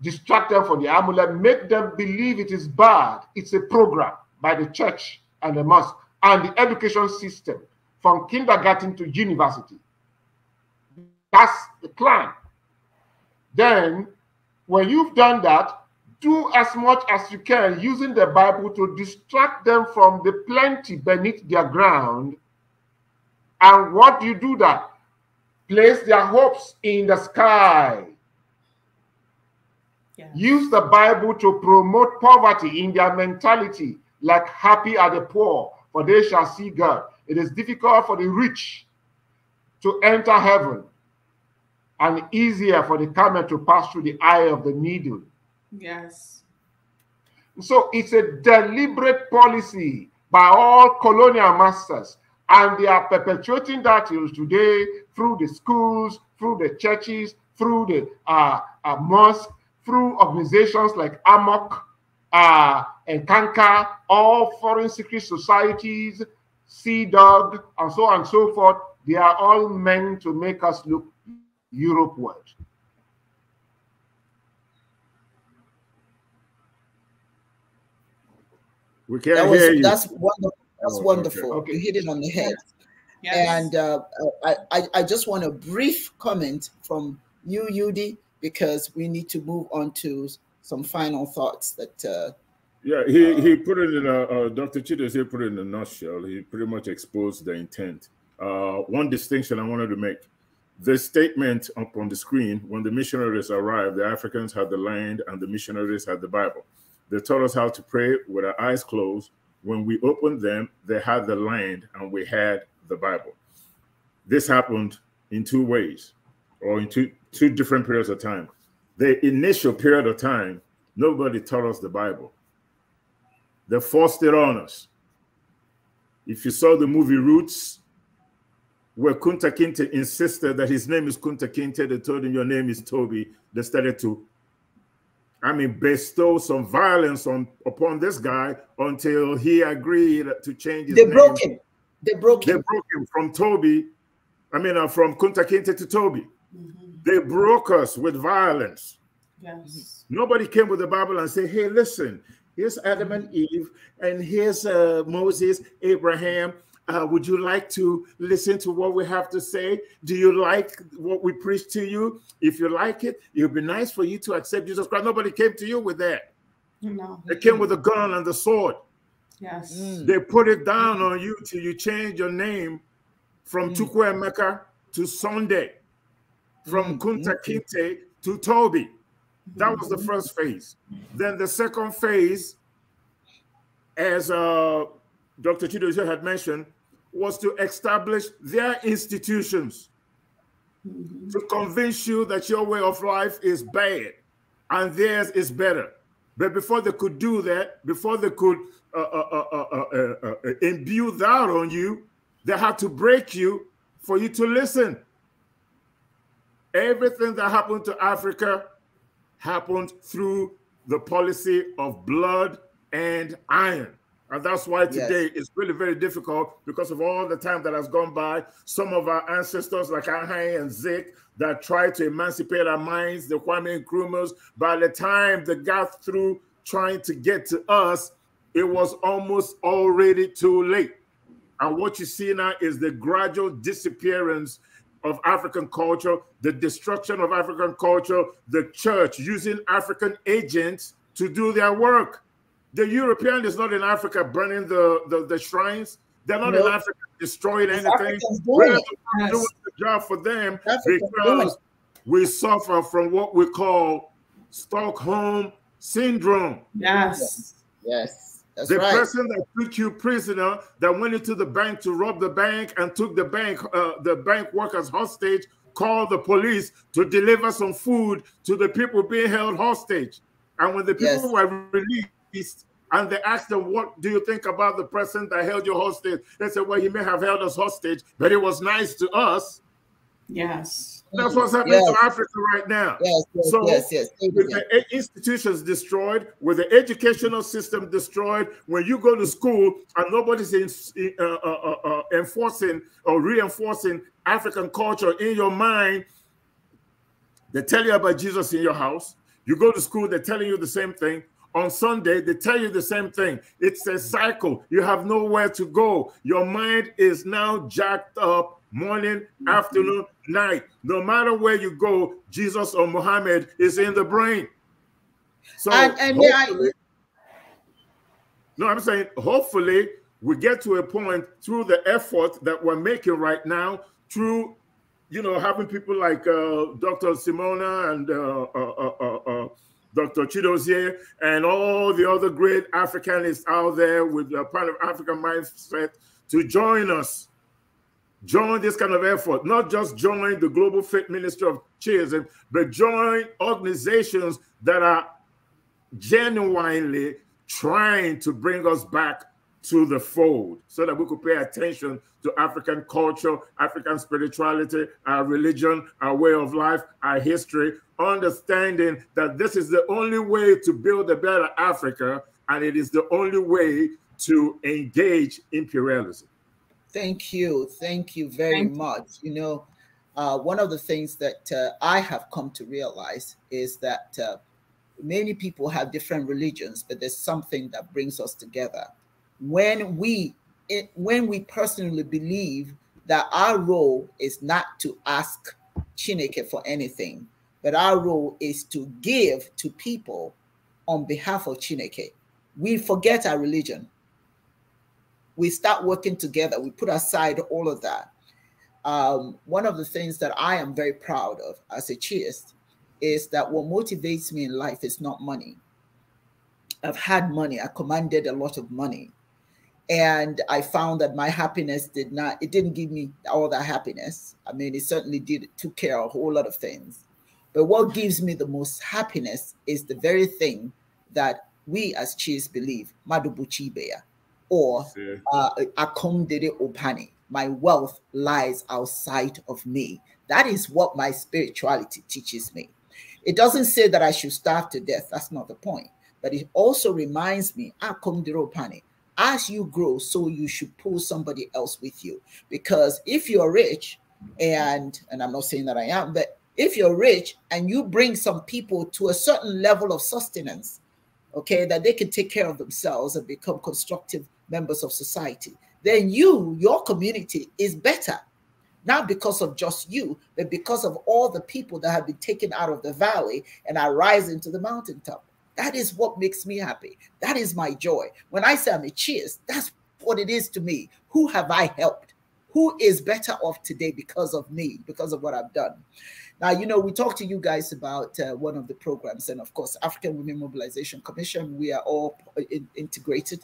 distract them from the amulet, make them believe it is bad. It's a program by the church and the mosque and the education system from kindergarten to university. That's the plan. Then, when you've done that, do as much as you can using the Bible to distract them from the plenty beneath their ground. And what do you do that? Place their hopes in the sky. Yeah. Use the Bible to promote poverty in their mentality, like happy are the poor, for they shall see God. It is difficult for the rich to enter heaven and easier for the camel to pass through the eye of the needle. Yes. So it's a deliberate policy by all colonial masters, and they are perpetuating that till today through the schools, through the churches, through the uh, uh, mosque, through organizations like AMOC uh, and Kanka, all foreign secret societies, Sea Dog, and so on and so forth, they are all meant to make us look Europeward. We can't that was, hear you. That's wonderful. That's oh, wonderful. Okay. You hit it on the head. Yes. And uh, I, I, I just want a brief comment from you, Yudi, because we need to move on to some final thoughts that uh, yeah, he, uh, he put it in a, uh, Dr. Chitters, he put it in a nutshell. He pretty much exposed the intent. Uh, one distinction I wanted to make this statement up on the screen when the missionaries arrived, the Africans had the land and the missionaries had the Bible. They taught us how to pray with our eyes closed. When we opened them, they had the land and we had the Bible. This happened in two ways or in two, two different periods of time. The initial period of time, nobody taught us the Bible. They forced it on us. If you saw the movie Roots, where Kunta Kinte insisted that his name is Kunta Kinte, they told him, Your name is Toby. They started to, I mean, bestow some violence on upon this guy until he agreed to change his they name. They broke him. They broke him. They broke him from Toby, I mean, uh, from Kunta Kinte to Toby. Mm -hmm. They broke us with violence. Yes. Nobody came with the Bible and said, hey, listen, Here's Adam and Eve, and here's uh, Moses, Abraham. Uh, would you like to listen to what we have to say? Do you like what we preach to you? If you like it, it would be nice for you to accept Jesus Christ. Nobody came to you with that. No. They came with a gun and the sword. Yes. Mm. They put it down on you till you change your name from mm. Chukwuemeka to Sunday, from mm. Kunta mm. Kinte to Toby. That was the first phase. Then the second phase, as uh, Dr. Chidozie had mentioned, was to establish their institutions to convince you that your way of life is bad and theirs is better. But before they could do that, before they could uh, uh, uh, imbue that on you, they had to break you for you to listen. Everything that happened to Africa happened through the policy of blood and iron. And that's why today yes. it's really very difficult because of all the time that has gone by. Some of our ancestors, like Ahai and Zik, that tried to emancipate our minds, the Kwame Nkrumahs, by the time they got through trying to get to us, it was almost already too late. And what you see now is the gradual disappearance of African culture, the destruction of African culture, the church using African agents to do their work. The European is not in Africa burning the, the, the shrines. They're not nope. in Africa destroying it's anything. We're doing the job for them because we suffer from what we call Stockholm syndrome. Yes. Yes. That's the right. person that took you prisoner, that went into the bank to rob the bank and took the bank, uh, the bank workers hostage, called the police to deliver some food to the people being held hostage. And when the people yes. were released and they asked them, What do you think about the person that held you hostage? They said, Well, he may have held us hostage, but it was nice to us. Yes. That's what's happening yes. to Africa right now. Yes, yes, so yes, yes. With the institutions destroyed, with the educational system destroyed, when you go to school and nobody's in, uh, uh, uh, uh, enforcing or reinforcing African culture in your mind, they tell you about Jesus in your house. You go to school, they're telling you the same thing. On Sunday, they tell you the same thing. It's a cycle. You have nowhere to go. Your mind is now jacked up morning, mm-hmm. afternoon, night. No matter where you go, Jesus or Muhammad is in the brain. So and, and I, no, I'm saying hopefully we get to a point through the effort that we're making right now, through you know having people like uh, Dr. Simona and uh, uh, uh, uh, uh Dr. Chidozie and all the other great Africanists out there with the part of African mindset to join us Join this kind of effort, not just join the Global Faith Ministry of Children, but join organizations that are genuinely trying to bring us back to the fold so that we could pay attention to African culture, African spirituality, our religion, our way of life, our history, understanding that this is the only way to build a better Africa and it is the only way to engage imperialism. Thank you. Thank you very Thank much. You, you know, uh, one of the things that uh, I have come to realize is that uh, many people have different religions, but there's something that brings us together. When we it, eh, when we personally believe that our role is not to ask Chineke for anything, but our role is to give to people on behalf of Chineke. We forget our religion we start working together. We put aside all of that. Um, one of the things that I am very proud of as a chaist is that what motivates me in life is not money. I've had money. I commanded a lot of money, and I found that my happiness did not. It didn't give me all that happiness. I mean, it certainly did took care of a whole lot of things. But what gives me the most happiness is the very thing that we as chiefs believe, Madubuchibea, or uh, akondere opane. My wealth lies outside of me. That is what my spirituality teaches me. It doesn't say that I should starve to death. That's not the point. But it also reminds me, akondere opani. As you grow, so you should pull somebody else with you. Because if you're rich, and and I'm not saying that I am, but if you're rich and you bring some people to a certain level of sustenance, okay, that they can take care of themselves and become constructive members of society, then you, your community is better. Not because of just you, but because of all the people that have been taken out of the valley and are rising to the mountaintop. That is what makes me happy. That is my joy. When I say I'm a cheers, that's what it is to me. Who have I helped? who is better off today because of me, because of what I've done. Now, you know, we talked to you guys about uh, one of the programs, and of course, African Women Mobilization Commission, we are all in integrated.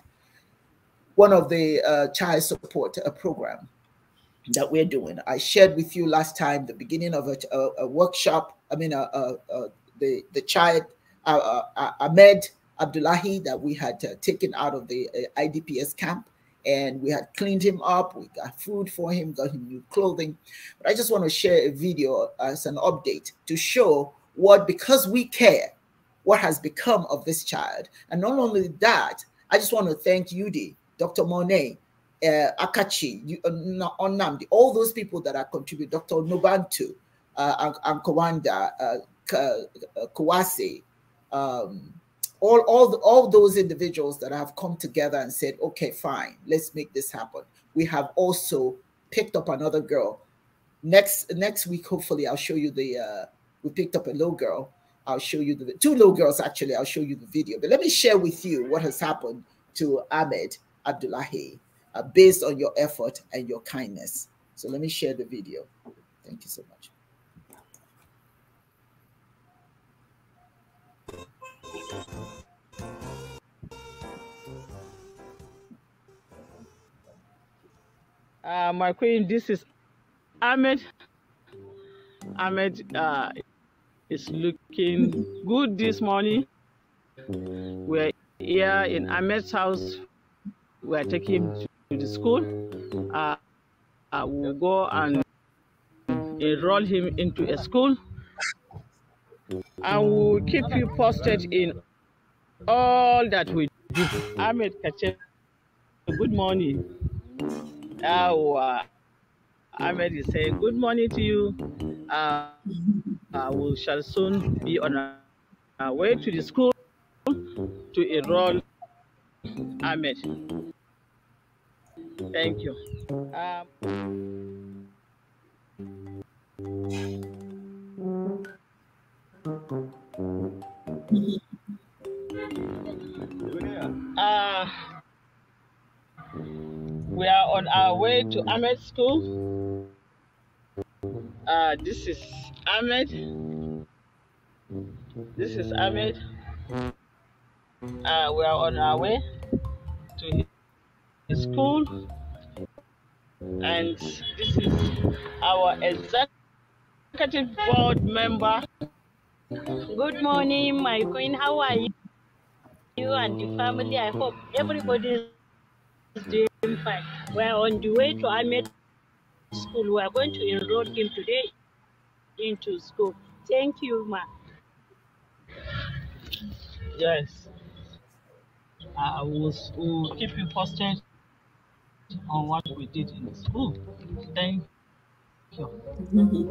One of the uh, child support uh, program that we're doing. I shared with you last time the beginning of a, a, a workshop. I mean, uh, uh, uh, the the child uh, uh, uh, Ahmed Abdullahi that we had taken out of the IDPS camp and we had cleaned him up. We got food for him, got him new clothing. But I just want to share a video as an update to show what, because we care, what has become of this child. And not only that, I just want to thank Yudi, Dr. Monet, uh, Akachi, uh, Onamdi, all those people that are contributing, Dr. Nobantu, uh, Ankawanda, uh, Kawase, uh, um, all all all those individuals that have come together and said okay fine let's make this happen we have also picked up another girl next next week hopefully i'll show you the uh we picked up a little girl i'll show you the two little girls actually i'll show you the video but let me share with you what has happened to ahmed abdullahi uh, based on your effort and your kindness so let me share the video thank you so much Uh, my queen, this is Ahmed. Ahmed uh, is looking good this morning. We're here in Ahmed's house. We're taking him to the school. Uh, uh we'll go and enroll him into a school and we'll keep you posted in all that we do. Ahmed Kache, good morning. Awa. Ahmed is saying good morning to you. Uh, uh, we shall soon be on our way to the school to enroll Ahmed. Thank you. Um, uh, we are on our way to Ahmed School. Uh, this is Ahmed. This is Ahmed. Uh, we are on our way to his school. And this is our executive board member. Good morning, my queen. How are you? You and the family. I hope everybody is doing fine. We're on the way to Ahmed School. We are going to enroll him today into school. Thank you, ma. Yes. I will, will keep you posted on what we did in the school. Thank you. Mm-hmm.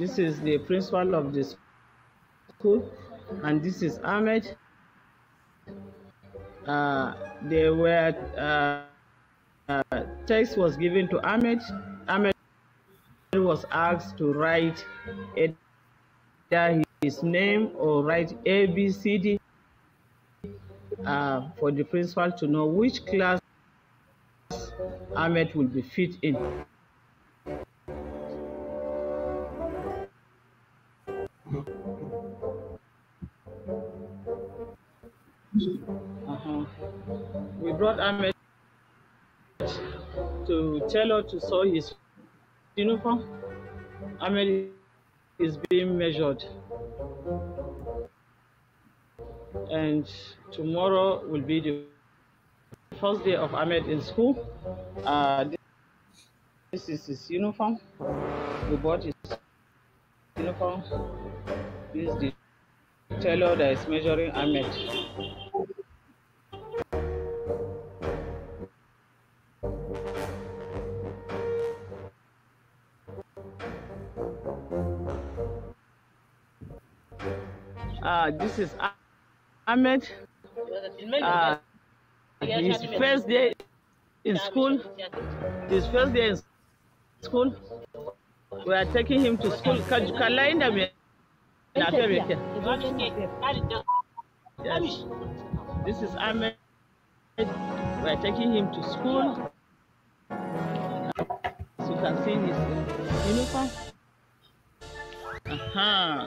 This is the principal of the school, and this is Ahmed. Uh, they were uh, uh, text was given to Ahmed. Ahmed was asked to write either his name or write A B C D uh, for the principal to know which class Ahmed will be fit in. Ahmed to tell her to sew his uniform. Ahmed is being measured. And tomorrow will be the first day of Ahmed in school. Uh, this is his uniform. We bought his uniform. This is the tailor that is measuring Ahmed. is Ahmed. Uh, his first day in school, his first day in school, we are taking him to school. Kalainda me. Yes. This is Ahmed. We are taking him to school. As you can see, his uniform. Uh-huh.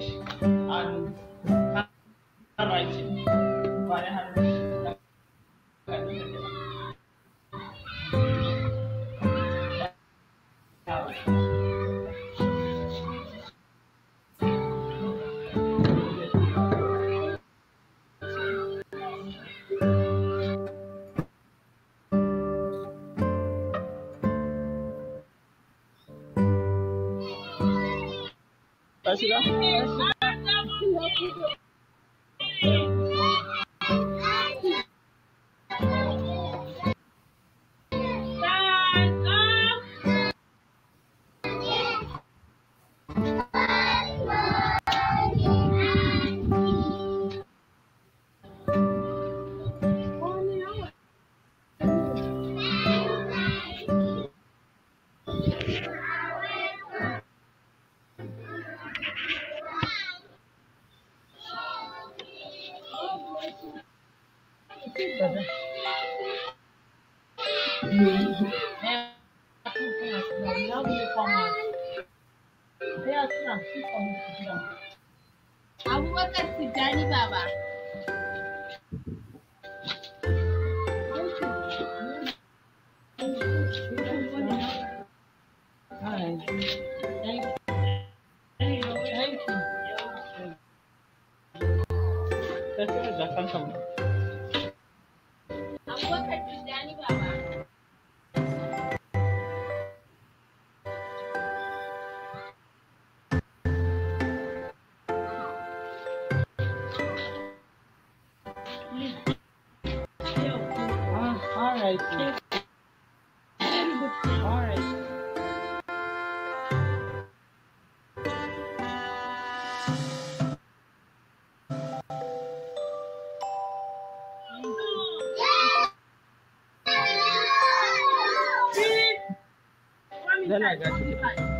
English and 好了，啊。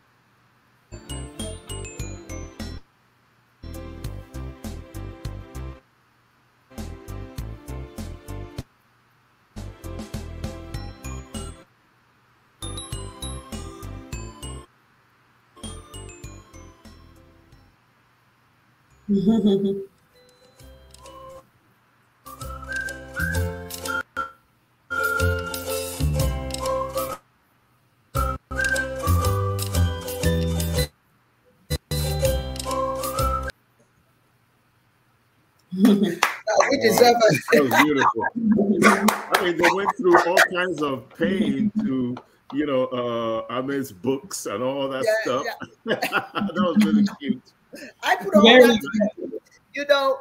we deserve it. That was beautiful. I mean, they went through all kinds of pain to, you know, uh, Ahmed's books and all that yeah, stuff. Yeah. that was really cute. I put all Very that You know,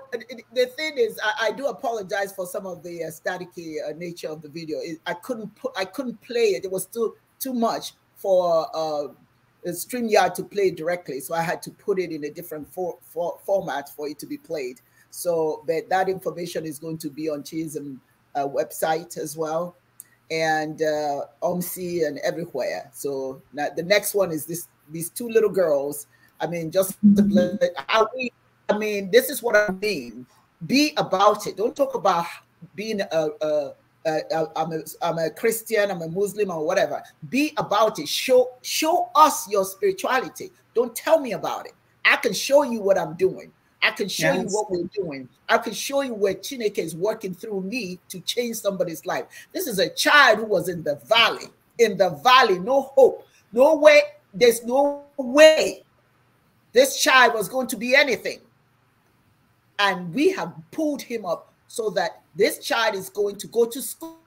the thing is, I, I do apologize for some of the uh, staticky uh, nature of the video. It, I couldn't put, I couldn't play it. It was too too much for uh, StreamYard to play directly, so I had to put it in a different for, for, format for it to be played. So, but that information is going to be on Chism uh, website as well, and uh, OMSI and everywhere. So now the next one is this: these two little girls I mean, just mm-hmm. I mean, I mean, this is what I mean. Be about it. Don't talk about being a, a, a, I'm a I'm a Christian, I'm a Muslim, or whatever. Be about it. Show show us your spirituality. Don't tell me about it. I can show you what I'm doing. I can show yes. you what we're doing. I can show you where Chineke is working through me to change somebody's life. This is a child who was in the valley. In the valley, no hope, no way. There's no way this child was going to be anything. And we have pulled him up so that this child is going to go to school,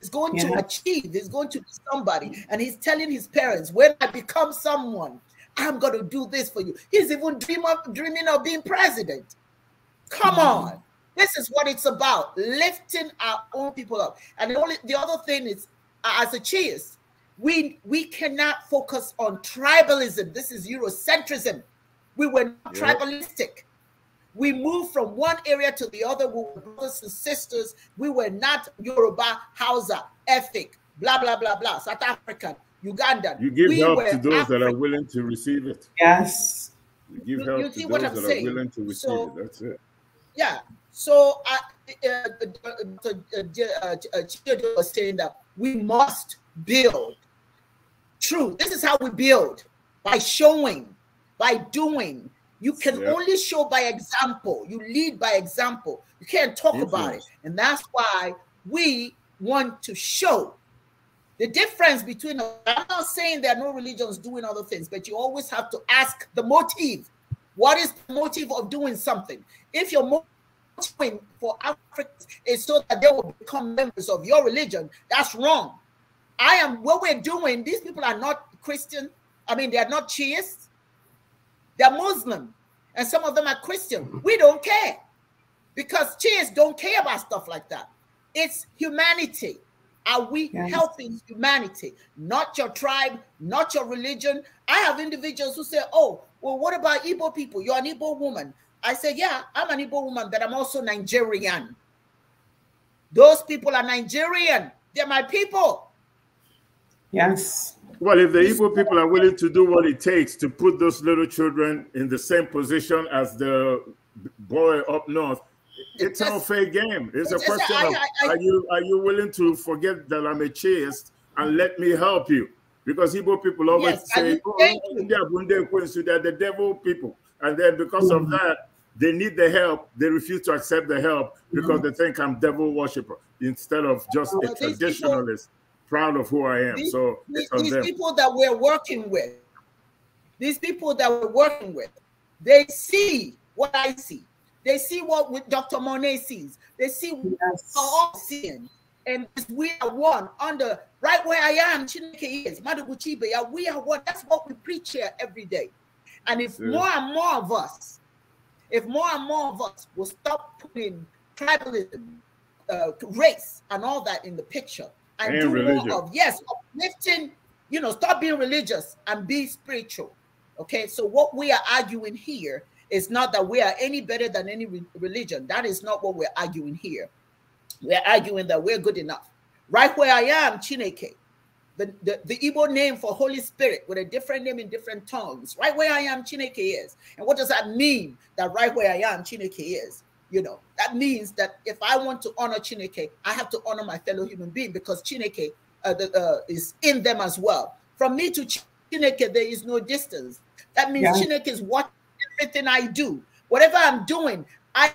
is going yeah. to achieve, is going to be somebody. And he's telling his parents, when I become someone, I'm going to do this for you. He's even dream of, dreaming of being president. Come mm. on. This is what it's about lifting our own people up. And the, only, the other thing is, as a cheers, we we cannot focus on tribalism. This is Eurocentrism. We were yep. tribalistic. We moved from one area to the other. We were brothers and sisters. We were not Yoruba, Hausa, ethnic, blah blah blah blah, South African, Ugandan. You give we help to those African. that are willing to receive it. Yes. You give you, help you to those that saying. are willing to receive so, it. That's it. Yeah. So I, uh, uh, uh, was saying that we must build true. This is how we build by showing, by doing. You can yep. only show by example. You lead by example. You can't talk Influence. about it. And that's why we want to show the difference between. I'm not saying there are no religions doing other things, but you always have to ask the motive. What is the motive of doing something? If your motive for Africans is so that they will become members of your religion, that's wrong. I am what we're doing. These people are not Christian. I mean, they are not Shiites. They're Muslim, and some of them are Christian. We don't care because Shiites don't care about stuff like that. It's humanity. Are we yes. helping humanity? Not your tribe, not your religion. I have individuals who say, "Oh, well, what about Igbo people? You're an Igbo woman." I say, "Yeah, I'm an Igbo woman, but I'm also Nigerian. Those people are Nigerian. They're my people." Yes. Well, if the evil people are willing to do what it takes to put those little children in the same position as the boy up north, it's all fair game. It's, it's a question I, of I, I, are you are you willing to forget that I'm a chaste and let me help you? Because Igbo people always yes, say, oh, they're the devil people. And then because mm -hmm. of that, they need the help. They refuse to accept the help because mm -hmm. they think I'm devil worshiper instead of just well, a traditionalist. People, proud of who I am. These, so these, these people that we're working with, these people that we're working with, they see what I see. They see what Dr. Monet sees. They see yes. what we're all seeing. And we are one under right where I am, Chineke is, Maduguchi We are one. That's what we preach here every day. And if yeah. more and more of us, if more and more of us will stop putting tribalism, uh, race, and all that in the picture, and, and do religion. more of. Yes, uplifting, you know, stop being religious and be spiritual. Okay, so what we are arguing here is not that we are any better than any re religion. That is not what we're arguing here. We're arguing that we're good enough. Right where I am, Chineke, the, the, the Igbo name for Holy Spirit with a different name in different tongues. Right where I am, Chineke is. And what does that mean that right where I am, Chineke is? You know, that means that if I want to honor Chineke, I have to honor my fellow human being because Chineke uh, the, uh, is in them as well. From me to Chineke, there is no distance. That means yeah. Chineke is watching everything I do. Whatever I'm doing, I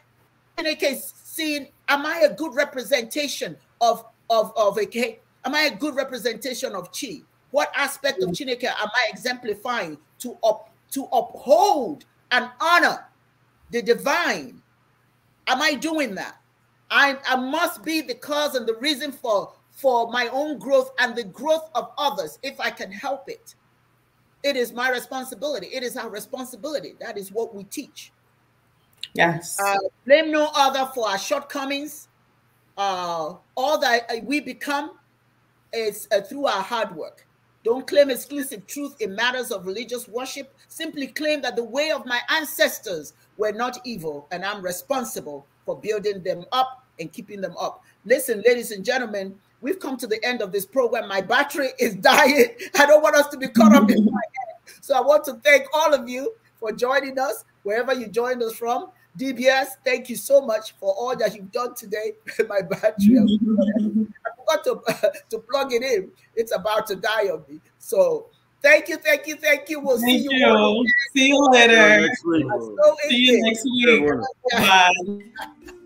Chineke is seeing, am I a good representation of, of, of okay? Am I a good representation of Chi? What aspect of mm. Chineke am I exemplifying to up, to uphold and honor the divine Am I doing that? I, I must be the cause and the reason for, for my own growth and the growth of others if I can help it. It is my responsibility. It is our responsibility. That is what we teach. Yes. Uh, blame no other for our shortcomings. Uh, all that uh, we become is uh, through our hard work. Don't claim exclusive truth in matters of religious worship. Simply claim that the way of my ancestors were not evil, and I'm responsible for building them up and keeping them up. Listen, ladies and gentlemen, we've come to the end of this program. My battery is dying. I don't want us to be caught up in my head. So I want to thank all of you for joining us, wherever you joined us from. DBS, thank you so much for all that you've done today. my battery, I forgot to, to plug it in. It's about to die on me. So Thank you, thank you, thank you. We'll thank see you. you. See you later. See you next week. Bye.